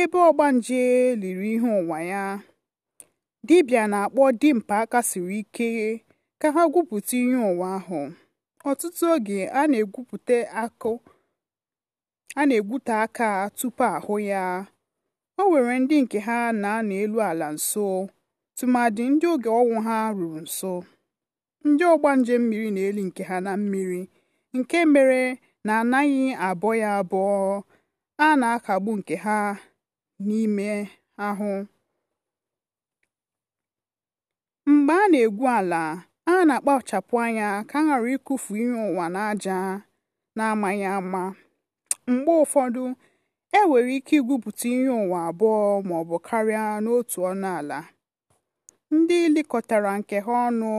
ebe ọgbanje liri ihe ụwa ya, Dibia na-akpọ dimpa aka siri ike ka ha gwupụta ihe ụwa ahụ. Ọtụtụ oge a na-egwute aka tupu ahụ ya. O were ndị nke ha na-anọ elu ala nso tụmadị ndị oge ọnwụ ha ruru nso. Ndị ọgbanje mmiri na-eli nke ha na mmiri nke mere na anaghị abọ ya abọ a na-akagbu nke ha n'ime ahụ mgbe a na-egwu ala a na-akpachapụ anya ka a ghara ịkụfu ihe ụwa n'aja na-amaghị ama mgbe ụfọdụ e nwere ike igwupụta ihe ụwa abụọ bụ karịa n'otu ọnụ ala ndị lekọtara nke ha ọnụ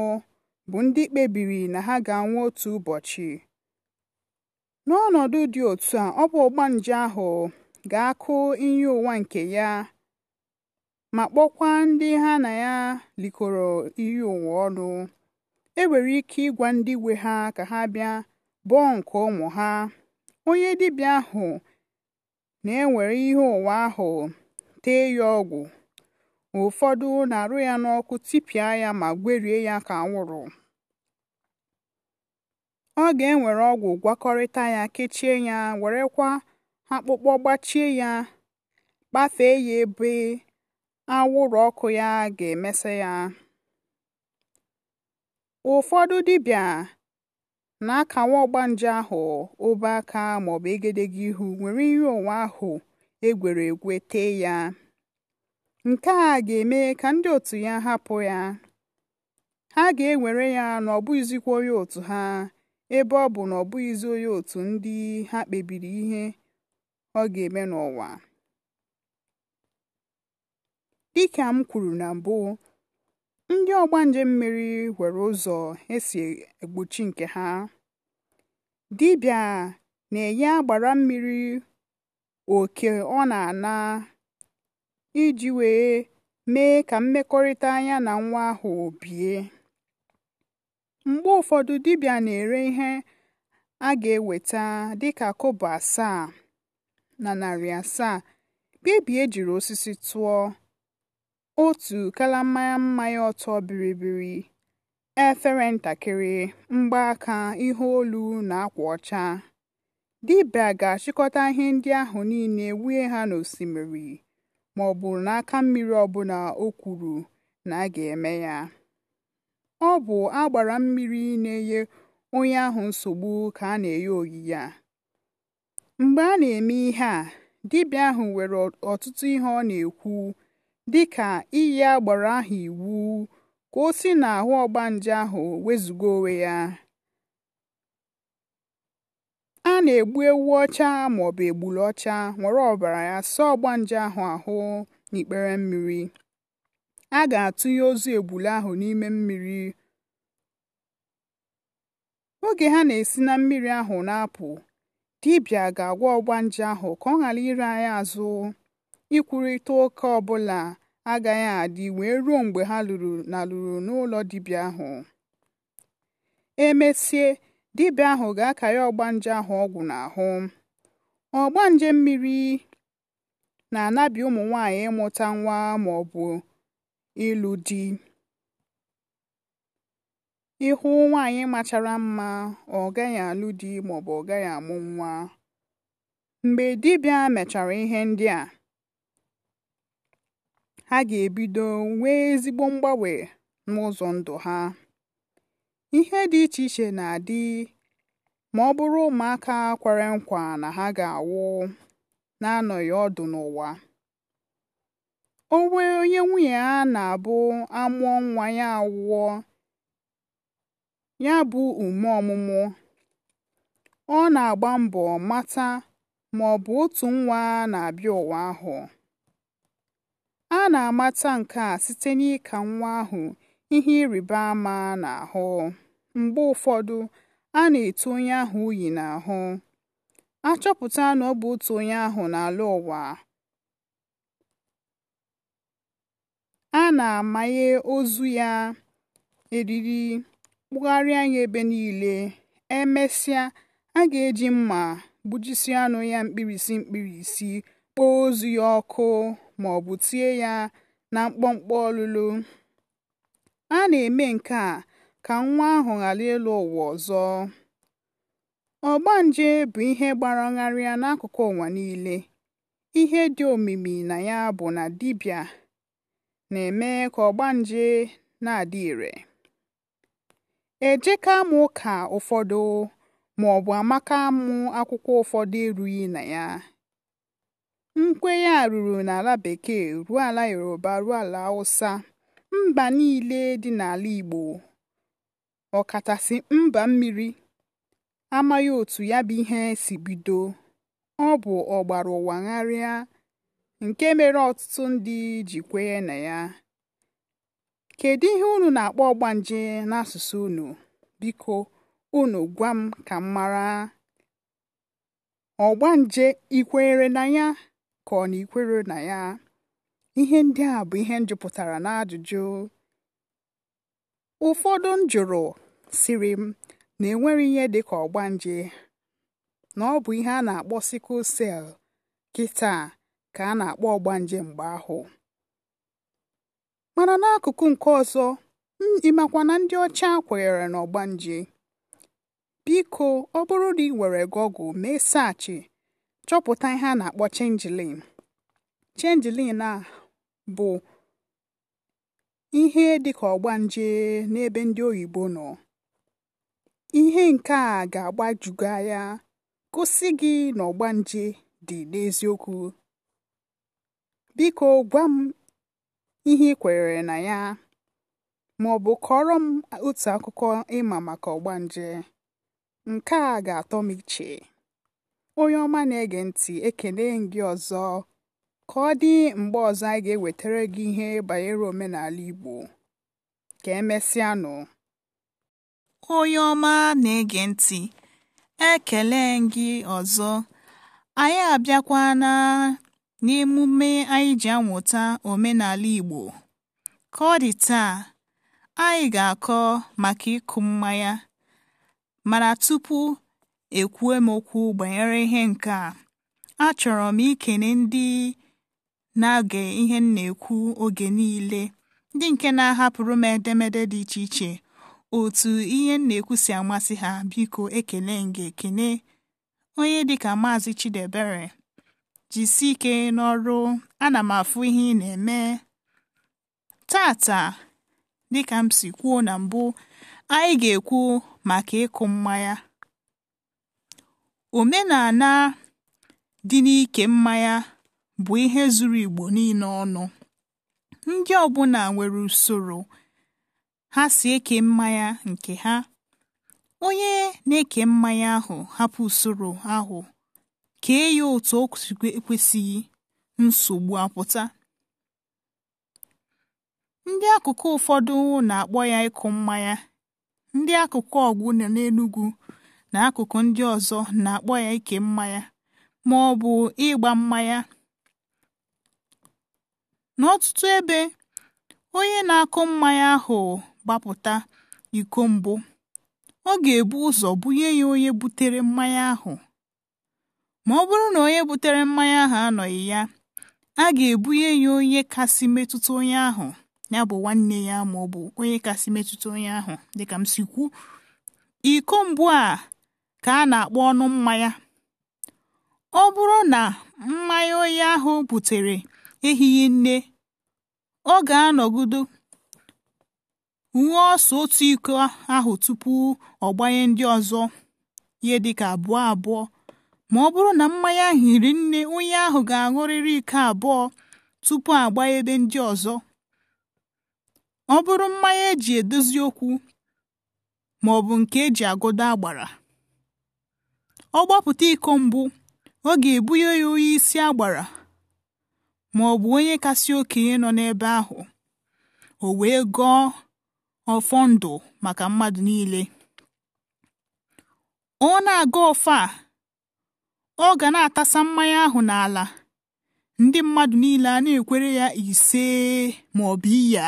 bụ ndị kpebiri na ha ga-anwụ otu ụbọchị n'ọnọdụ dị otu a ọ bụ nje ahụ ga-akụ iyi ụwa nke ya ma kpọkwa ndị ha na ya likọrọ iyi ụwa ọnụ e nwere ike ịgwa ndị we ha ka ha bịa bụọ nke ụmụ ha onye dibịa ahụ na-ewere ihe ụwa ahụ tee ya ọgwụ ụfọdụ na-arụ ya n'ọkụ tipịa ya ma gwerie ya ka anwụrụ ọ ga ewere ọgwụ gwakọrịta ya kechie ya werekwa akpụkpọ gbachie ya kpafee ya ebe awụrụ ọkụ ya ga èmesị ya ụfọdụ dibia na akàwa ọgbanje ahụ obe aka maọbụ egedege ihu nwere ihe ònwùwe ahụ egwere egwe tee ya. Nke a ga-eme ka ndị otu ya hapụ ya ha ga-ewere ya na onye otu ha ebe ọ bụ na ọ bụghịzi onye otu ndị ha kpebiri ihe ọ ga-eme n'ụwa dịka m kwuru na mbụ ndị ọgbanje mmiri nwere ụzọ esi egbochi nke ha dibịa na-enye agbara mmiri oke ọ na-ana iji wee mee ka mmekọrịta anya na nwa ahụ bie mgbe ụfọdụ dibịa na-ere ihe a ga-eweta dịka kobo asaa na narị asaa baby ejiri osisi tụọ, otu kalammanya mmanya ọtọ bịrịbịrị, efere ntakịrị, mgbaaka, ihe olu na akwa ọcha. Dibịa ga-achịkọta ihe ndị ahụ niile wụnye ha n'osimiri ma ọ bụ n'aka mmiri ọbụla o kwuru na a ga-eme ya. ọ bụ agbara mmiri na-enye onye ahụ nsogbu ka a na-enye oyiyi ya. mgbe a na-eme ihe a dibịa ahụ nwere ọtụtụ ihe ọ na-ekwu dị ka iyi agbara ahụ iwu ka o si n'ahụ ọgbanje ahụ wezụga onwe ya a na-egbu ewu ọcha maọbụ egbulu ọcha nwere ọbara ya saa ọgbanje ahụ ahụ n'ikpere mmiri a ga-atụnye ozu egbule ahụ n'ime mmiri oge ha na-esi na mmiri ahụ na-apụ dibịa ga-agwa ọgbanje ahụ ka ọ ghara ire anyị azụ ikwurịta ụka ọbụla agaghị adị wee ruo mgbe ha lụrụ na lụrụ n'ụlọ dibịa ahụ emesie dibịa ahụ ga-akarị ọgbanje ahụ ọgwụ n'ahụ ọgbanje mmiri na-anabi ụmụ nwanyị ịmụta nwa ma ọ ịlụ di ịhụ nwaanyị machara mma ọ gaghị alụ di maọbụ ọ gaghị amụ nwa mgbe dibịa mechara ihe ndị a ha ga-ebido nwee ezigbo mgbanwe n'ụzọ ndụ ha ihe dị iche iche na-adị ma ọ bụrụ ụmụaka kwere nkwa na ha ga-awụ na-anọghị ọdụ n'ụwa o onye nwunye ya na-abụ amụọ nwa ya awụọ ya bụ ume ọmụmụ ọ na-agba mbọ mata ma ọ bụ otu nwa na-abịa ụwa ahụ a na-amata nke a site n'ịka nwa ahụ ihe ịrịba ama na ahụ. mgbe ụfọdụ a na eto onye ahụ uyi n'ahụ a na ọ bụ otu onye ahụ n'ala ụwa a na-amanye ozu ya eriri kpụgharịa ya ebe niile emesịa a ga-eji mma gbujisịa anụ ya mkpirisi mkpirisi kpoo ozu ya ọkụ ma ọ bụ tie ya na mkpọmkpọ ọlụlụ a na-eme nke a ka nwa ahụ ghara ịlụ ụwa ọzọ ọgbanje bụ ihe gbara ngharịa n'akụkụ ụwa niile ihe dị omimi na ya bụ na dibịa na-eme ka ọgbanje na-adị ire. Ejeka mụ ụka ụfọdụ ma maọbụ amaka mụ akwụkwọ ụfọdụ erughị na ya. Nkwenye a ruru n'ala Bekee ruo ala Yoruba ruo ala Hausa, mba niile dị n'ala Igbo ọkachasị mba mmiri amaghị otu ya bụ ihe si bido. Ọ bụ ọgbara ụwa gharịa nke mere ọtụtụ ndị ji kwenye na ya kedu ihe unu na-akpọ ọgbanje n'asụsụ unu biko unu gwa m ka m mara ọgbanje ikwenyere na ya ka ọ na ikwere na ya ihe ndị a bụ ihe njupụtara na ajụjụ ụfọdụ m jụrụ siri m na enwere ihe dịka ọgbanje na ọ bụ ihe a na-akpọ sikụl sel kịta ka a na-akpọ ọgbanje mgbe ahụ mana n'akụkụ nke ọzọ ịmakwa na ndị ọcha kwenyere na ọgbanje biko ọ bụrụ na ị were gọgụl mee saachị chọpụta ihe a na-akpọ chenjilin chenjilin a bụ ihe dịka ọgbanje n'ebe ndị oyibo nọ ihe nke a ga agbajugo ya gosi gị na ọgbanje dị n'eziokwu biko gwa m ihe ị na ya ma ọ bụ kọrọ m otu akụkọ ịma maka nje nke a ga-atọ m iche onye ọma na-ege ntị ekele gị ọzọ ka ọ dị mgbe ọzọ anyị ga-ewetara gị ihe banyere omenala Igbo ka emesịanụ onye ọma na-ege ntị ekele gị ọzọ anyị abịakwana n'emume anyị ji amụta omenala Igbo. Ka ọ dị taa, anyị ga-akọ maka ịkụ mmanya, mana tupu ekwue m okwu banyere ihe nke a, achọrọ m ikene ndị na-age ihe m na-ekwu oge niile, ndị nke na-ahapụrụ m edemede dị iche iche otu ihe m na-ekwu si amasị ha. Biko ekele nge ekene onye dịka Maazị Chidebere jisie ike n'ọrụ ana m afụ ihe ị na-eme tata dịka m si kwuo na mbụ anyị ga-ekwu maka ịkụ mmanya omenala dị n'ike mmanya bụ ihe zuru Igbo niile ọnụ ndị ọbụla nwere usoro ha si eke mmanya nke ha onye na-eke mmanya ahụ hapụ usoro ahụ kee eyi otu o kwesịghị nsogbu apụta ndị akụkụ ụfọdụ na-akpọ ya ịkụ mmanya ndị akụkụ ọgwụ na n'Enugwu na akụkụ ndị ọzọ na-akpọ ya ike mmanya ma ọ bụ ịgba mmanya n'ọtụtụ ebe onye na-akụ mmanya ahụ gbapụta iko mbụ ọ ga-ebu ụzọ bunye ya onye butere mmanya ahụ ma ọ bụrụ na onye butere mmanya ahụ anọghị ya a ga-ebunye ya onye kasị metụta onye ahụ ya bụ nwanne ya ma ọ bụ onye kasị metụta onye ahụ dịka m si iko mbụ a ka a na-akpọ ọnụ mmanya ọ bụrụ na mmanya onye ahụ butere ehihie nne ọ ga-anọgido nwa ọsọ otu iko ahụ tupu ọ gbanye ndị ọzọ ihe dịka abụọ abụọ ma ọ bụrụ na mmanya ahụ hiri nne onye ahụ ga-aṅụrịrị ike abụọ tupu agba ebe ndị ọzọ ọ bụrụ mmanya eji edozi okwu ma ọ bụ nke eji agụda agbara ọ gbapụta iko mbụ ọ ga-ebunye ya onye isi agbara ma ọ bụ onye kasị okenye nọ n'ebe ahụ o wee gọọ ọfọ ndụ maka mmadụ niile ọ na-aga ọfọ a ọ ga na-atasa mmanya ahụ n'ala ndị mmadụ niile a na-ekwere ya ise maọbụ ọ bụ iya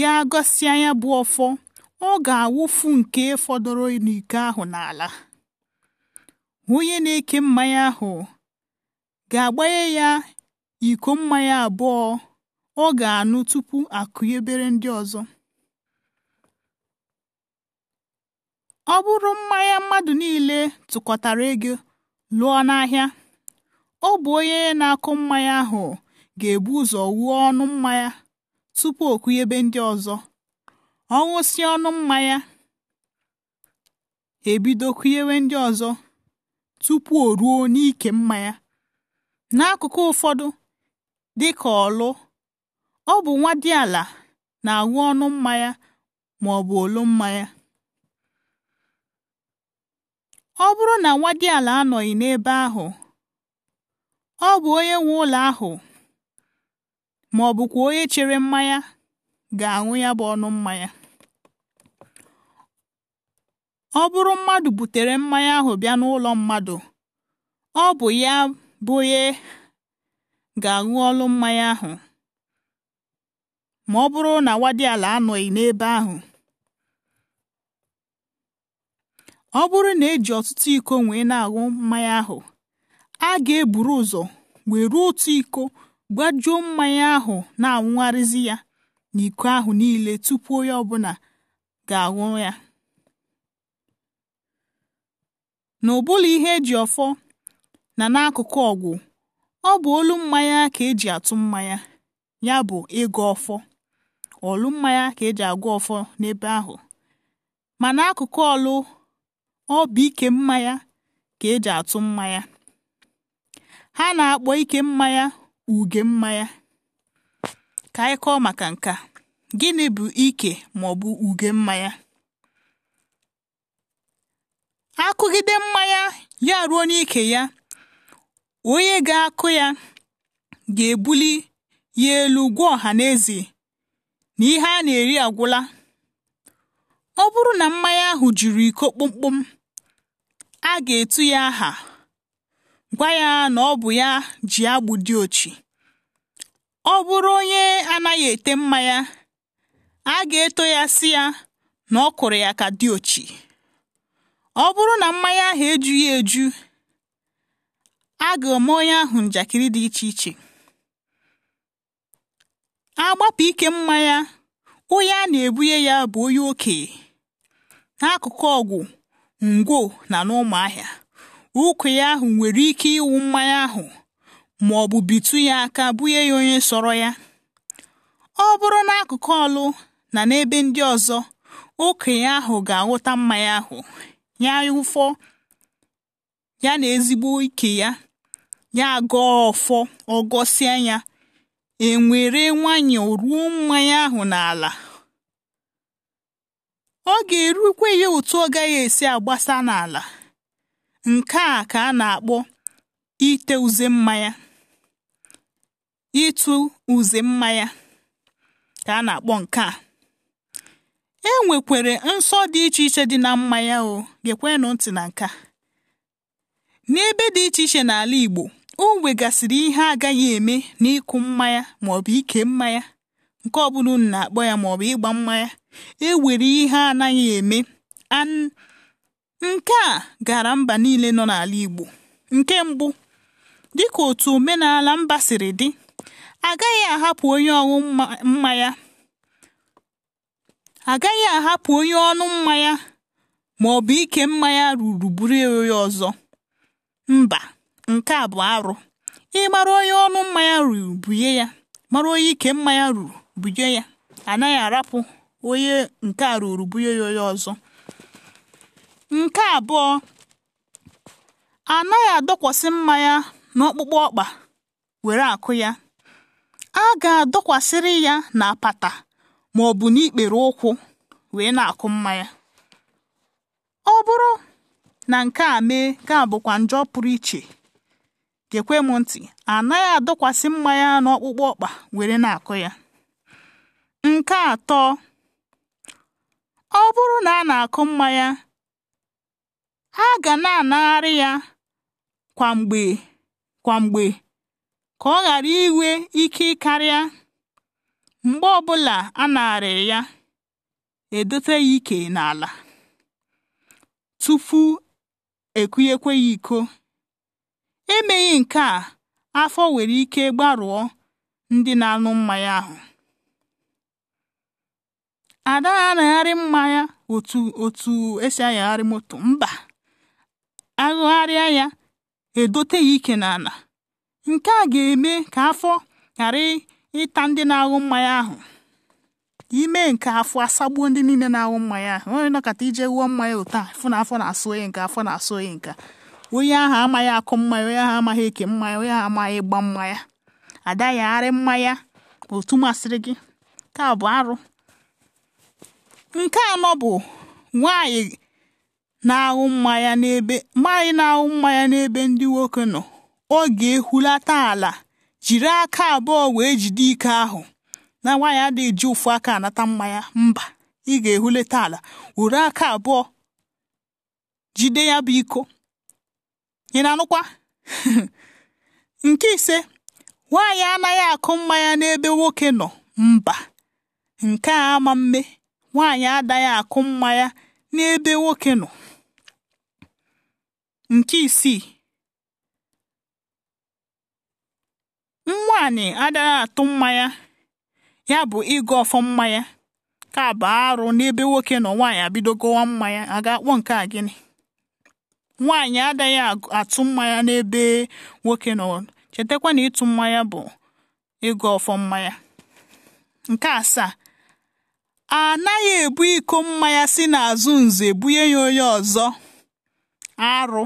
ya gosi anya bụ ọfọ ọ ga-awụfu nke fọdụrụ n'iko ahụ n'ala onye na-eke mmanya ahụ ga-agbanye ya iko mmanya abụọ ọ ga anụ tupu akụnyebere ndị ọzọ ọ bụrụ mmanya mmadụ niile tụkọtara ego lụọ n'ahịa ọ bụ onye na-akụ mmanya ahụ ga-ebu ụzọ wuo ọnụ mmanya tupu o kụnyebe ndị ọzọ ọ ṅụsịa ọnụ mmanya ebido kụnyewe ndị ọzọ tupu o ruo n'ike mmanya n'akụkụ ụfọdụ dịka ọlụ ọ bụ nwa dị ala na-aṅụ ọnụ mmanya ma ọ bụ olu mmanya ọ bụrụ na nwa dị ala anọghị n'ebe ahụ ọ bụ onye nwe ụlọ ahụ ma ọ bụkwa onye chere mmanya ga-aṅụ ya bụ ọnụ mmanya ọ bụrụ mmadụ butere mmanya ahụ bịa n'ụlọ mmadụ ọ bụ ya bụ onye ga-aṅụ ọlụ mmanya ahụ ma ọ bụrụ na nwa dị ala anọghị n'ebe ahụ ọ bụrụ na eji ọtụtụ iko wee na-aṅụ mmanya ahụ a ga-eburu ụzọ wee ruo otu iko gbajuo mmanya ahụ na-anwụgharịzi ya na iko ahụ niile tupu onye ọbụla ga-aṅụ ya n'ụbụla ihe eji ọfọ na n'akụkụ ọgwụ ọ bụ olu mmanya ka eji atụ mmanya ya bụ ịgụ ọfọ olu mmanya ka eji agwa ọfọ n'ebe ahụ ma n'akụkụ ọlụ ọ bụ ike mmanya ka eji atụ mmanya ha na-akpọ ike mmanya uge mmanya ka anyị kọọ maka nka gịnị bụ ike ma ọ bụ uge mmanya akụgide mmanya ya ruo n'ike ya onye ga-akụ ya ga-ebuli ya elu gwa ọha na eze na ihe a na-eri agwụla ọ bụrụ na mmanya ahụ juru iko kpụmkpụm. a ga-etu ya aha gwa ya na ọ bụ ya ji agbụ dị ochi ọ bụrụ onye anaghị ete mma ya, a ga-eto ya si ya na ọ kụrụ ya ka dị ochi ọ bụrụ na mmanya ahụ ejughị eju a ga-eme onye ahụ njakịrị dị iche iche agbapụ ike mmanya onye a na-ebunye ya bụ onye okenye n'akụkụ ọgwụ ngwo na n'ụmụahịa ụkwụ ya ahụ nwere ike ịwụ mmanya ahụ ma ọ bụ bitu ya aka bunye ya onye sọrọ ya ọ bụrụ n'akụkụ ọlụ na n'ebe ndị ọzọ okenye ahụ ga-aghọta mmanya ahụ ya ụfọ ya na ezigbo ike ya ya gọọ ọfọ ọgọsịa ya enwere nwanyị ruo mmanya ahụ n'ala ọ ga-erukwe ya otu ọ gaghị esi agbasa n'ala nke a ka a na-akpọ ite uze mmanya ịtụ uze mmanya ka a na-akpọ nke a e nwekwere nsọ dị iche iche dị na mmanya o gekwenụ ntị na nka n'ebe dị iche iche n'ala Igbo o nwegasịrị ihe agaghị eme n'ịkụ mmanya maọbụ ike mmanya nke ọ bụla unu na-akpọ ya maọbụ ịgba mmanya ewere ihe anaghị eme nke a gara mba niile nọ n'ala Igbo nke mbụ dịka otu omenala mba siri dị agaghị ahapụ onye ọṅụ mmanya agaghị ahapụ onye ọnụ mmanya ma ọ bụ ike mmanya ruru buru onye ọzọ mba nke a bụ arụ ịmara onye ọnụ mmanya ruru ihe ya mara onye ike mmanya ruru bunye ya anaghị arapụ onye nke a ruru bunye ya onye ọzọ nke abụọ anaghị adọkwasị mmanya n'ọkpụkpụ ọkpa were akụ ya a ga-adọkwasịrị ya na apata ma ọ bụ n'ikpere ụkwụ wee na-akụ mmanya ọ bụrụ na nke a mee ka bụkwa njọ pụrụ iche gekwe m ntị anaghị adọkwasị mmanya n'ọkpụkpụ ọkpa were na-akụ ya Nke atọ ọ bụrụ na a na-akụ mmanya a ga na-anagharị ya kwa mgbe ka ọ ghara inwe ike karịa mgbe ọbụla a narịrị ya edote ya ike n'ala tupu ekunyekwe ya iko emeghị nke a afọ nwere ike gbarụọ ndị na-aṅụ mmanya ahụ ada na-anyagharị mmanya otu otu esi anyagharị moto mba agụgharịa ya edote ya ike n'ala nke a ga-eme ka afọ ghara ịta ndị na aghụ mmanya ahụ ime nke afọ asagbuo ndị niile na aghụ mmanya ahụ onye nọkọta ije wụọ mmanya ụtọ fụ na afọ na-asụ onye nke afọ na-asụ onye nke onye ahụ amaghị akụ mmanya onye ahụ amaghị eke mmanya onye ahụ amaghị ịgba mmanya adagharị mmanya otu masịrị gị ka bụ arụ nke anọ bụ nwanyị na ahụ mmanya n'ebe nwanyị na-aṅụ mmanya n'ebe ndị nwoke nọ ọ ga-ehulata ala jiri aka abụọ wee jide ike ahụ na nwaanyị adịghị ji ụfụ aka anata mmanya mba ị ga-ehulata ala were aka abụọ jide ya bụ iko ị na-anụkwa nke ise nwaanyị anaghị akụ mmanya n'ebe nwoke nọ mba nke a ama mme nwaanyị adaghị akụ mma n'ebe nwoke nọ nke isii nwaanyị adaghị atụ mmanya, ya bụ ịgụ ọfọ mmanya ya ka bụ arụ n'ebe nwoke nọ nwaanyị abido gụwa mmanya. ya a ga-akpọ nke a gịnị nwaanyị adaghị atụ mmanya n'ebe nwoke nọ chetakwa na ịtụ mmanya bụ ịgụ ọfọ mmanya nke asaa a naghị ebu iko mmanya si n'azụ nze bunye ya onye ọzọ arụ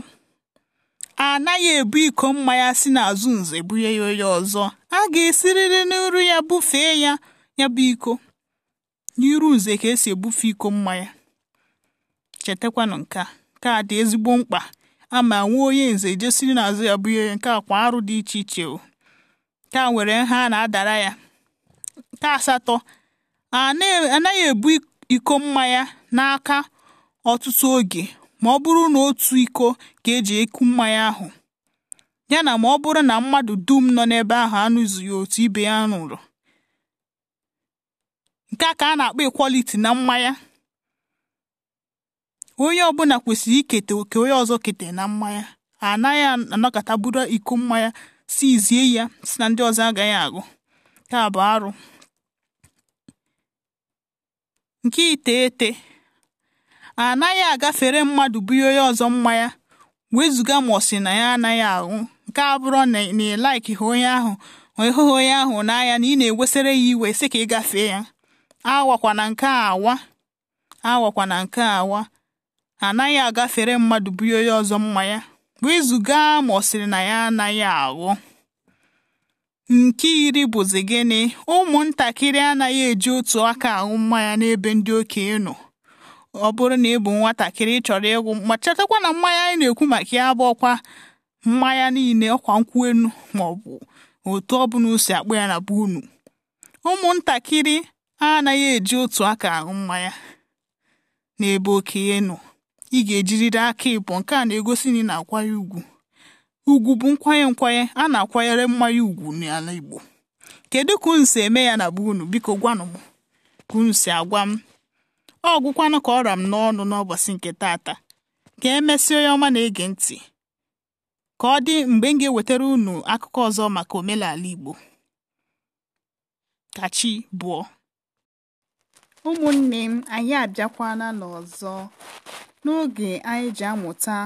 a naghị ebu iko mmanya si n'azụ nze bunye ya onye ọzọ a ga esiriri n'iru ya bufee ya ya bụ iko n'iru nze ka esi ebufe iko mmanya chetakwanụ nke a dị ezigbo mkpa ama nwee onye nze jesiri n'azụ ya bunye ya nke kwa arụ dị iche iche o nke a nwere nha a na-adara ya nke asatọ anaghị ebu iko mmanya n'aka ọtụtụ oge ma ọ bụrụ na otu iko ka eji eku mmanya ahụ ya na ma ọ bụrụ na mmadụ dum nọ n'ebe ahụ anụzughi otu ibe ya nụrụ, nke a ka a na-akpọ ekwaliti na mmanya onye ọbụla kwesịrị ikete oke onye ọzọ kete na mmanya anaghị anọkọta buru iko mmanya si izie ya si na ndị ọzọ agaghị agụ nke a bụ arụ nke iteghete a naghị agafere mmadụ buye oye ọzọ mmanya wezụga ma ọ sị na ya anaghị ahụ nke abụrụ na ị laiki ha onye ahụ na onye ahụ n'anya na ị na-ewesịrị ya iwe sị ka ị gafee ya awakwana nke awakwana nke awa anaghị agafere mmadụ buye onye ọzọ mmanya wezụga ma ọ na ya anaghị aghụ nke iri bụzi gịnị ụmụntakịrị anaghị eji otu aka ahụ mmanya n'ebe ndị okenye nọ ọ bụrụ na ị bụ nwatakịrị chọrọ ịgwụ ma chetakwa na mmanya anyị na-ekwu maka ya bụ ọkwa mmanya niile ọkwa nkwụ enu ma ọ bụ otu ọbụla o si akpụ ya na be unu ụmụntakịrị anaghị eji otu aka ahụ mmanya n'ebe okenye nọ ị ga-ejiriri aka ịbụ nke a na-egosi na ị na agwa ya ugwu ugwu bụ nkwanye nkwanye a na-akwanyere mmanya ugwu n'ala Igbo kedu ka unu si eme ya na be unu biko gwanụ m ka unu si agwa m ọ gwụkwanụ ka ọ ra m n'ọnụ n'ụbọchị nke taata ka emesi onye ọma na-ege ntị ka ọ dị mgbe m ga-ewetara unu akụkọ ọzọ maka omenala Igbo ka chi bụọ ụmụnne m anyị abịakwana n'ọzọ n'oge anyị ji amụta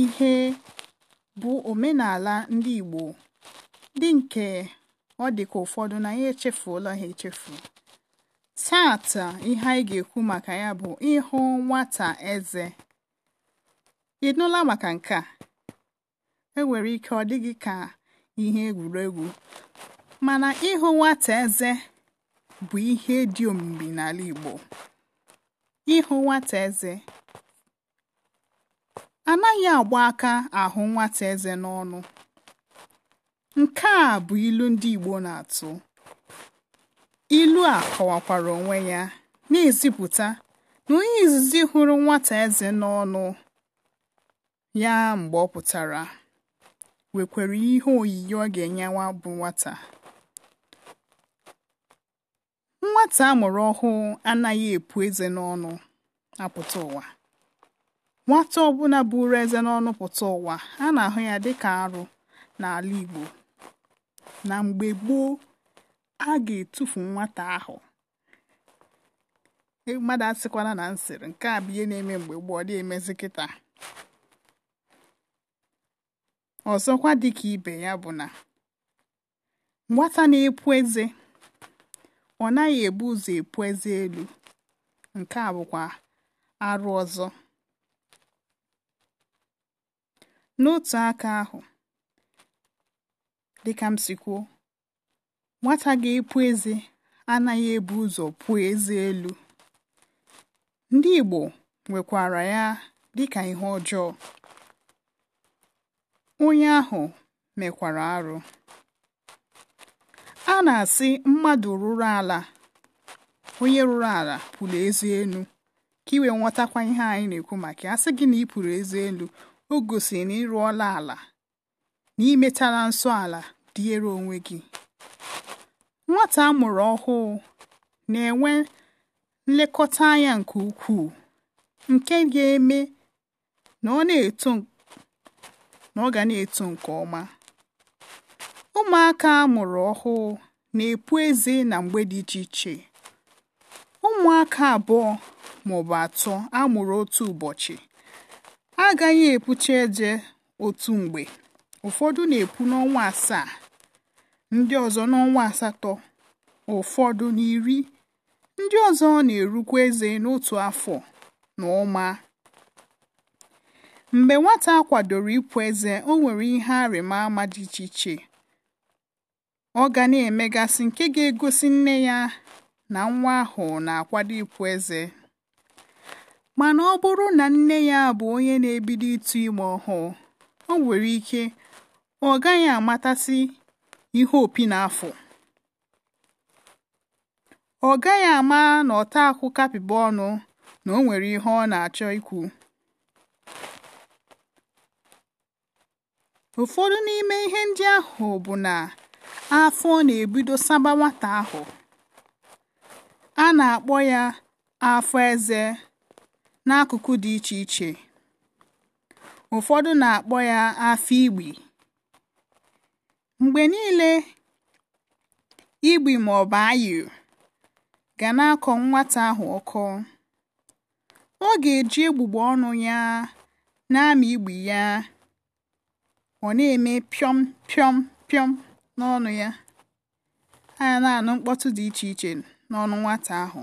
ihe bụ omenala ndị Igbo, dị nke ọ dị ka ụfọdụ na ya echefuola ha echefu taata ihe anyị ga-ekwu maka ya bụ ịhụ nwata eze ị nụla maka nke a enwere ike ọ dịghị ka ihe egwuregwu mana ịhụ nwata eze bụ ihe dị omimi n'ala Igbo ịhụ nwata eze anaghị agba aka ahụ nwata eze n'ọnụ nke a bụ ilu ndị Igbo na-atụ ilu a kọwakwara onwe ya na-ezipụta na onye izizi hụrụ nwata eze n'ọnụ ya mgbe ọ pụtara wekwara ihe oyiyi ọ ga-enye bụ nwata nwata amụrụ ọhụụ anaghị epu eze n'ọnụ apụta ụwa nwata ọbụla ụrụ eze n'ọnụ pụta ụwa a na-ahụ ya dịka arụ n'ala Igbo na mgbe gboo a ga-etufu nwata ahụ e, mmadụ asịkwala na nsịrị nke a bụ na-eme mgbe gboo ọ dị emezi kịta ọzọkwa dịka ibe ya bụ na nwata na-epu eze ọ naghị ebu ụzọ epu eze elu nke a bụkwa arụ ọzọ N'otu aka ahụ, dịka m si nwata ga-epu eze anaghị ebu ụzọ pụọ eze elu. Ndị Igbo nwekwara ya dịka ihe ọjọọ. Onye ahụ mekwara arụ. A na-asị mmadụ rụrụ ala, onye rụrụ ala pụrụ ezi elu, ka iwee wee ihe anyị na-ekwu maka ya. gị na ị pụrụ eze elu o gosi na ịrụọla ala na imetara nsọ ala dịere onwe gị nwata a mụrụ ọhụụ na-enwe nlekọta anya nke ukwuu nke ga-eme na ọ na-eto na ọ ga na-eto nke ọma ụmụaka a mụrụ ọhụụ na-epu eze na mgbe dị iche iche ụmụaka abụọ maọbụ atọ a mụrụ otu ụbọchị agaghị epucha eje otu mgbe ụfọdụ na-epu n'ọnwa asaa ndị ọzọ n'ọnwa asatọ ụfọdụ n'iri ndị ọzọ na-erukwa eze n'otu afọ na ụma mgbe nwata kwadoro ịpụ eze o nwere ihe arịma ama dị iche iche ọ ga na-emegasị nke ga-egosi nne ya na nwa ahụ na-akwado ịpụ eze mana ọ bụrụ na nne ya bụ onye na-ebido ịtụ ime ọhụụ o nwere ike ọ gaghị amatasị ihe opi na-afụ ọ gaghị ama na ọta akwụ kapịba ọnụ na o nwere ihe ọ na-achọ ikwu ụfọdụ n'ime ihe ndị ahụ bụ na afọ na-ebido saba nwata ahụ a na-akpọ ya afọ eze n'akụkụ dị iche iche ụfọdụ na-akpọ ya afọ igbi mgbe niile igbi ma ọ bụ ayụ ga na-akọ nwata ahụ ọkọ ọ ga-eji egbugbo ọnụ ya na-amị igbi ya ọ na-eme pịọm pịọm pịọm n'ọnụ ya a na-anụ mkpọtụ dị iche iche n'ọnụ nwata ahụ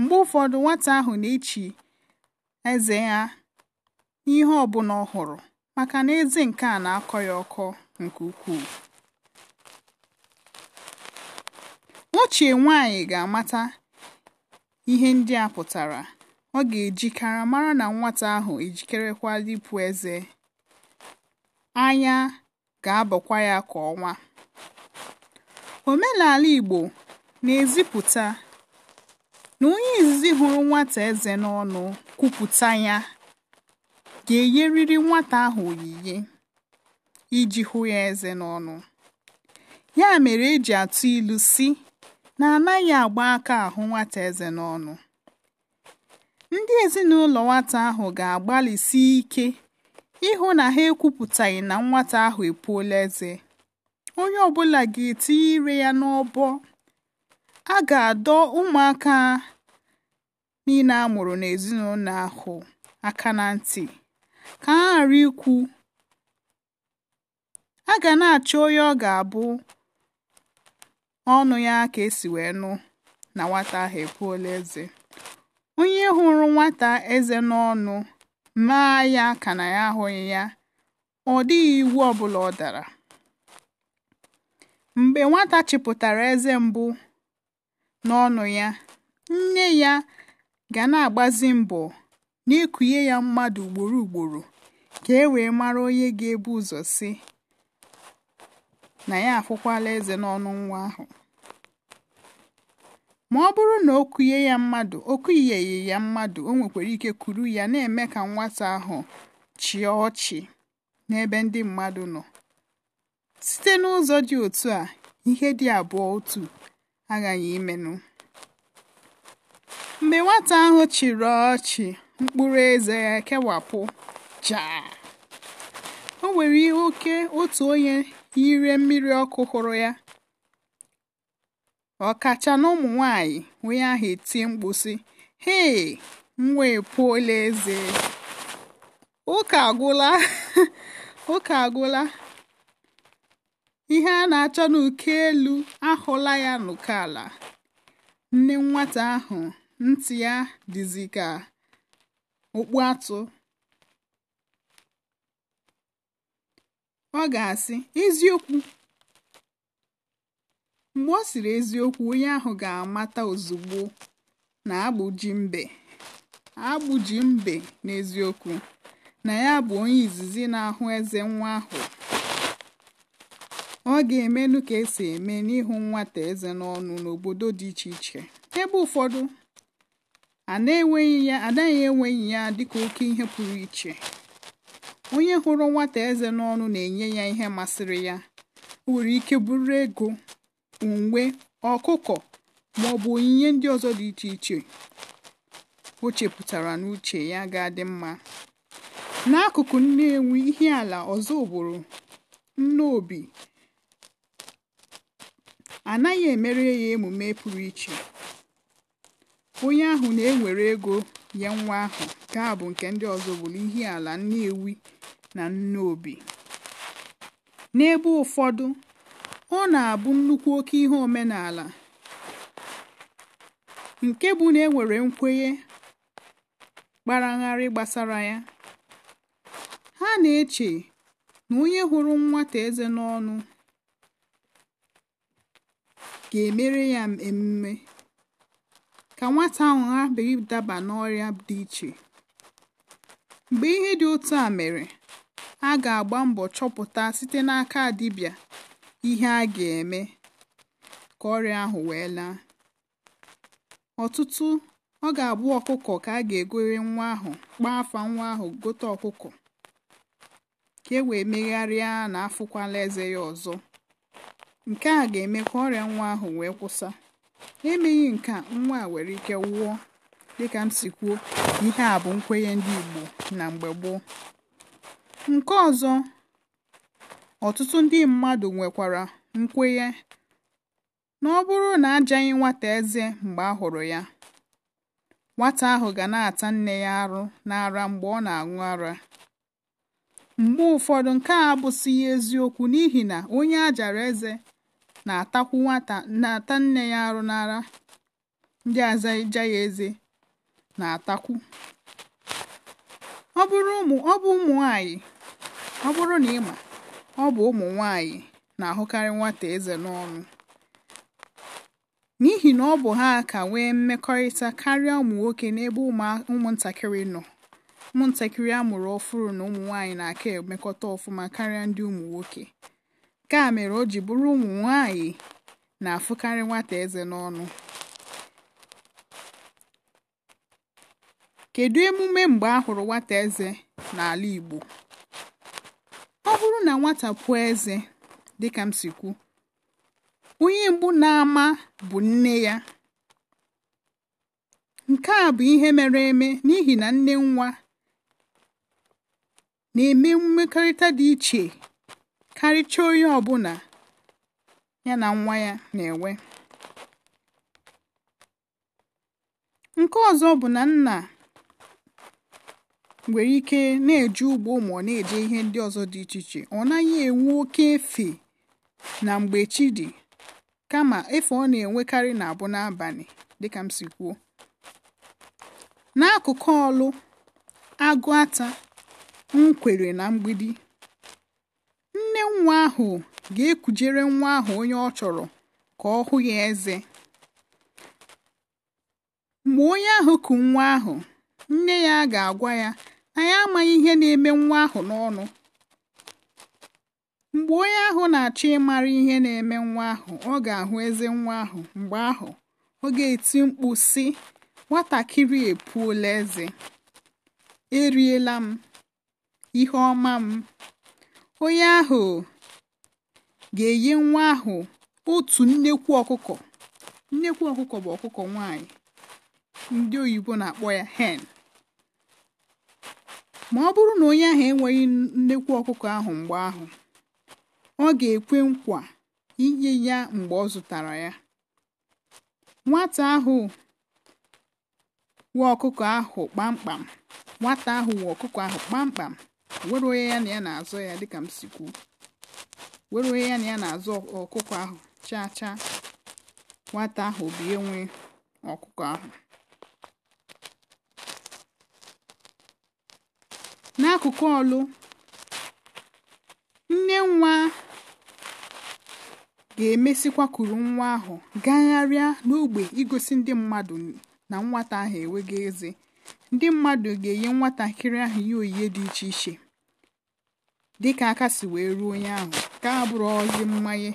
mgbe ụfọdụ nwata ahụ na-echi eze ya n'ihe ọbụla ọ hụrụ maka na eze nke a na-akọ ya ọkọ nke ukwuu nwachie nwanyị ga-amata ihe ndị a pụtara ọ ga-ejikara mara na nwata ahụ ejikerekwa ịpụ eze anya ga-abọkwa ya ka ọnwa omenala Igbo na-ezipụta na onye izizi hụrụ nwata eze n'ọnụ kwupụta ya ga-enyerịrị nwata ahụ oyiyi iji hụ ya eze n'ọnụ ya mere eji atụ ilu si na anaghị agba aka ahụ nwata eze n'ọnụ ndị ezinụlọ nwata ahụ ga-agbalịsi ike ịhụ na ha ekwupụtaghị na nwata ahụ epuola eze onye ọbụla ga-etinye ire ya n'ọbọ a ga-adọ ụmụaka niile a mụrụ n'ezinụlọ ahụ aka na ntị ka ha ghàra ikwu a ga na achọ onye ọ ga-abụ ọnụ ya ka esi wee nụ na nwata ahụ epuola eze. onye hụrụ nwata eze n'ọnụ maa ya ka ya ahụghị ya ọ dịghị iwu ọbụla ọ dara. Mgbe nwata chịpụtara eze mbụ. n'ọnụ ya, nne ya ga na-agbazi mbọ n'ịkụnye ya mmadụ ugboro ugboro ka e wee mara onye ga-ebu ụzọ si na ya afụkwala eze n'ọnụ nwa ahụ. Ma ọ bụrụ na o kụnye ya mmadụ o kụnyeghị ya mmadụ o nwekwara ike kuru ya na-eme ka nwata ahụ chịa ọchị n'ebe ndị mmadụ nọ. Site n'ụzọ dị otu a, ihe dị abụọ otu aghaghị imenụ mgbe nwata ahụ chịrị ọchị mkpụrụ eze ya kewapụ jaa o nwere ihe oke otu onye yiri mmiri ọkụ hụrụ ya kacha n'ụmụ nwanyị onye ahụ eti mkpu sị hei nwa epuola eze ụka agwụla ụka agwụla ihe a na-achọ n'uke elu ahụla ya n'ụkọ ala nne nwata ahụ ntị ya dịzi ka okpu atụ ọ ga-asị eziokwu mgbe ọ sịrị eziokwu onye ahụ ga-amata ozugbo na agbụji mbe agbụji mbe n'eziokwu na ya bụ onye izizi na-ahụ eze nwa ahụ ọ ga-emenụ ka esi eme n'ihu nwata eze n'ọnụ n'obodo dị iche iche ebe ụfọdụ anaghị enweghị ya dịka oke ihe pụrụ iche onye hụrụ nwata eze n'ọnụ na-enye ya ihe masịrị ya nwere ike bụrụ ego uwe ọkụkọ ma ọ bụ onyinye ndị ọzọ dị iche iche o chepụtara n'uche ya ga-adị mma n'akụkụ Nnewi ihe ala ọzọ bụrụ obi anaghị emere ya emume pụrụ iche onye ahụ na-ewere ego nye nwa ahụ nke a bụ nke ndị ọzọ bụla ihe ala nnewi na obi. n'ebe ụfọdụ ọ na-abụ nnukwu oke ihe omenala nke bụ na enwere nkwenye kparagharị gbasara ya ha na-eche na onye hụrụ nwata eze n'ọnụ ga-emere ya emume ka nwata ahụ ha ghabeghị daba n'ọrịa dị iche mgbe ihe dị otu a mere a ga-agba mbọ chọpụta site n'aka dibịa ihe a ga-eme ka ọrịa ahụ wee laa ọtụtụ ọ ga-abụ ọkụkọ ka a ga-egore nwa ahụ kpaa afa nwa ahụ gote ọkụkọ ka e wee megharịa na afụkwala eze ya ọzọ Nke a ga-eme ka ọrịa nwa ahụ wee kwụsa, emeghị nke nwa a nwere ike nwụọ. Dịka m si kwuo, ihe a bụ nkwenye ndị Igbo na mgbe gboo. Nke ọzọ, ọtụtụ ndị mmadụ nwekwara nkwenye na ọ bụrụ na ajaghị nwata eze mgbe a hụrụ ya, nwata ahụ ga na-ata nne ya arụ n'ara mgbe ọ na-aṅụ ara. Mgbe ụfọdụ, nke a abụsịghị eziokwu n'ihi na onye a jara eze na-atakwu nwata na-ata nne ya arụ n'ara ndị azaja ya eze na-atakwu ọ bụrụ ụmụ ọ bụ ụmụ nwanyị ọ bụrụ na ịma ọ bụ ụmụ nwanyị na-ahụkarị nwata eze n'ọnụ n'ihi na ọ bụ ha ka nwee mmekọrịta karịa ụmụ nwoke n'ebe ụmụntakịrị nọ ụmụntakịrị a mụrụ ọfụrụ na ụmụ nwaanyị na-aka emekọta ọfụma karịa ndị ụmụ nwoke nke a mere o ji bụrụ ụmụ nwanyị na-afụkarị nwata eze n'ọnụ kedu emume mgbe a hụrụ nwata eze n'ala Igbo ọ bụrụ na nwata pụọ eze dịka m si kwu onye mbụ na-ama bụ nne ya nke a bụ ihe mere eme n'ihi na nne nwa na-eme mmekọrịta dị iche karịchaa onye ọbụla ya na nwa ya na-enwe nke ọzọ bụ na nna nwere ike na eji ugbo ma ọ na-eje ihe ndị ọzọ dị iche iche ọ naghị enwe oke efe na mgbe chi dị kama efe ọ na-enwekarị na-abụ n'abalị dịka m si kwuo n'akụkụ ọlụ agụ ata nkwere na mgbidi nne nwa ahụ ga-ekujere nwa ahụ onye ọ chọrọ ka ọ hụ ya eze mgbe onye ahụ ku nwa ahụ nne ya ga-agwa ya anyị amaghị ihe na-eme nwa ahụ n'ọnụ mgbe onye ahụ na-achọ ịmara ihe na-eme nwa ahụ ọ ga-ahụ eze nwa ahụ mgbe ahụ ọ ga-eti mkpu sị nwatakịrị epuola eze eriela m ihe ọma m onye ahụ ga-enye nwa ahụ otu nnekwu ọkụkọ nnekwu ọkụkọ bụ ọkụkọ nwaanyị ndị oyibo na-akpọ ya hen ma ọ bụrụ na onye ahụ enweghị nnekwu ọkụkọ ahụ mgbe ahụ ọ ga-ekwe nkwa inye ya mgbe ọ zụtara ya nwata ahụ wee ọkụkọ ahụ kpamkpam nwata ahụ wee ọkụkọ ahụ kpamkpam were onye ya na ya na-azọ ya dịka m were onye ya na ya na-azọ ọkụkọ ahụ chaa chaa nwata ahụ obie nwe ọkụkọ ahụ n'akụkụ ọlụ nne nwa ga-emesikwa kuru nwa ahụ gagharịa n'ogbe igosi ndị mmadụ na nwata ahụ enweghị eze ndị mmadụ ga-enye nwatakịrị ahụ ihe oyiye dị iche iche dịka aka si wee ruo onye ahụ ka abụrụ ozi mmanye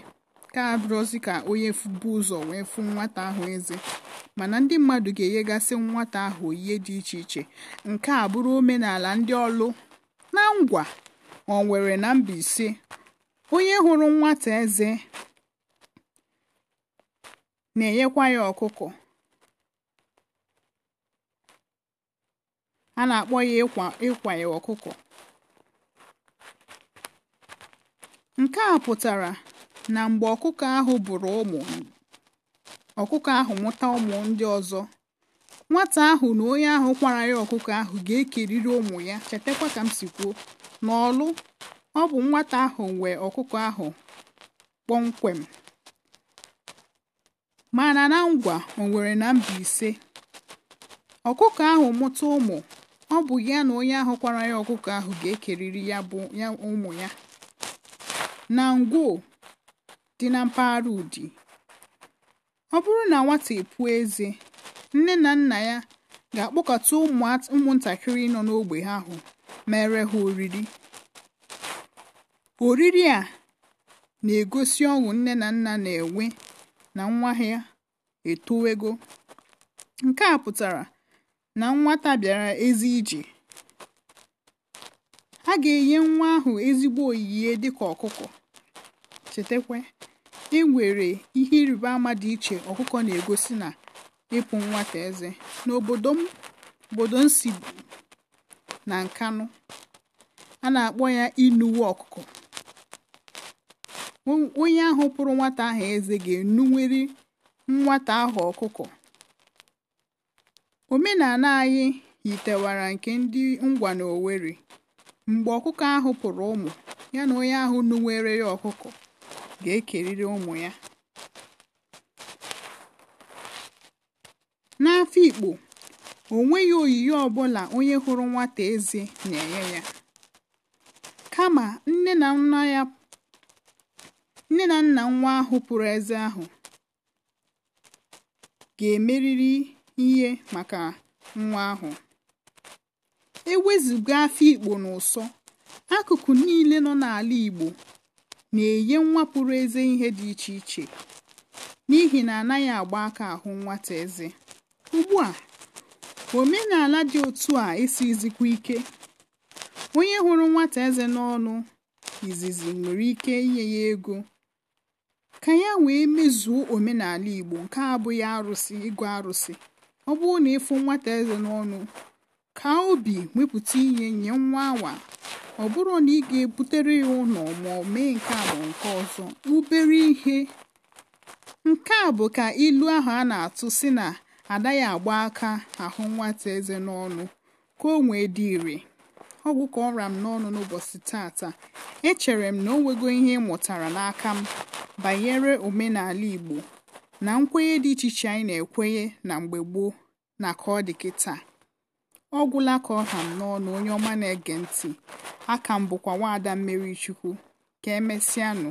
ka abụrụ ozi ka onye bụ ụzọ wee fụ nwata ahụ eze mana ndị mmadụ ga-enyegasị nwata ahụ oyihe dị iche iche nke a bụrụ omenala ndị ọlụ na ngwa o nwere na Mbaise onye hụrụ nwata eze na-enyekwa ya ọkụkọ a na-akpọ ya ịkwa ịkwa ọkụkọ nke a pụtara na mgbe ọkụkọ ahụ bụrụ ụmụ ọkụkọ ahụ mụta ụmụ ndị ọzọ nwata ahụ na onye ahụ kwara ya ọkụkọ ahụ ga-ekerịrị ụmụ ya chetakwa ka m si kwuo n'ọlụ ọ bụ nwata ahụ nwe ọkụkọ ahụ kpọmkwem mana na ngwa o nwere na mba ise ọkụkọ ahụ mụta ụmụ ọ bụ ya na onye ahụ kwara ya ọkụkọ ahụ ga ekeriri ya ụmụ ya na ngwo dị na mpaghara ụdị ọ bụrụ na nwata epu eze nne na nna ya ga-akpọkọta ụmụntakịrị nọ ha ahụ mere ha oriri oriri a na-egosi ọṅụ nne na nna na-enwe na nwa ha etowego nke a pụtara na nwata bịara ezi ije ha ga-enye nwa ahụ ezigbo oyiye dịka ọkụkọ chetakwa e nwere ihe ịrịba ama dị iche ọkụkọ na-egosi na ịpụ nwata eze n'obodo m obodo m na nkanụ a na-akpọ ya inuwe ọkụkọ onye ahụ pụrụ nwata ahụ eze ga enuwere nwata ahụ ọkụkọ Omenala anyị yitewara nke ndị ngwa owerri Mgbe ọkụkọ ahụ pụrụ ụmụ, ya na onye ahụ nuwere ya ọkụkọ ga-ekerịrị ụmụ ya. N'Afikpo, o nweghị oyiyi ọbụla onye hụrụ nwata eze na-enye ya. Kama nne na nna nwa ahụ pụrụ eze ahụ ga-emerịrị ihe maka nwa ahụ ewezụga afọ ikpo n'ụsọ akụkụ niile nọ n'ala igbo na-enye nwa pụrụ eze ihe dị iche iche n'ihi na anaghị agba aka ahụ nwata eze ugbu a omenala dị otu a esizikwa ike onye hụrụ nwata eze n'ọnụ izizi nwere ike inye ya ego ka ya wee mezuo omenala igbo nke abụghị arụsị ịgụ arụsị ọ bụrụ na ịfụ nwata eze n'ọnụ ka obi wepụta ihe nye nwa awa ọ bụrụ na ị ga-ebutere ya ụlọ ma ọ mee nke a ma nke ọzọ ubere ihe nke a bụ ka ilu ahụ a na-atụ si na adaghị agba aka ahụ nwata eze n'ọnụ ka o nwee dị ire ọgwụ ka ọ m n'ọnụ n'ụbọchị tata echere m na o nwego ihe ị mụtara n'aka m banyere omenala Igbo na nkwenye dị iche iche anyị na-ekwenye na mgbe gboo na ka ọ dị kịta ọ gwụla ka ọ ha n'ọnụ onye ọma na-ege ntị aka m bụkwa nwaada mmeri chukwu ka emesịanụ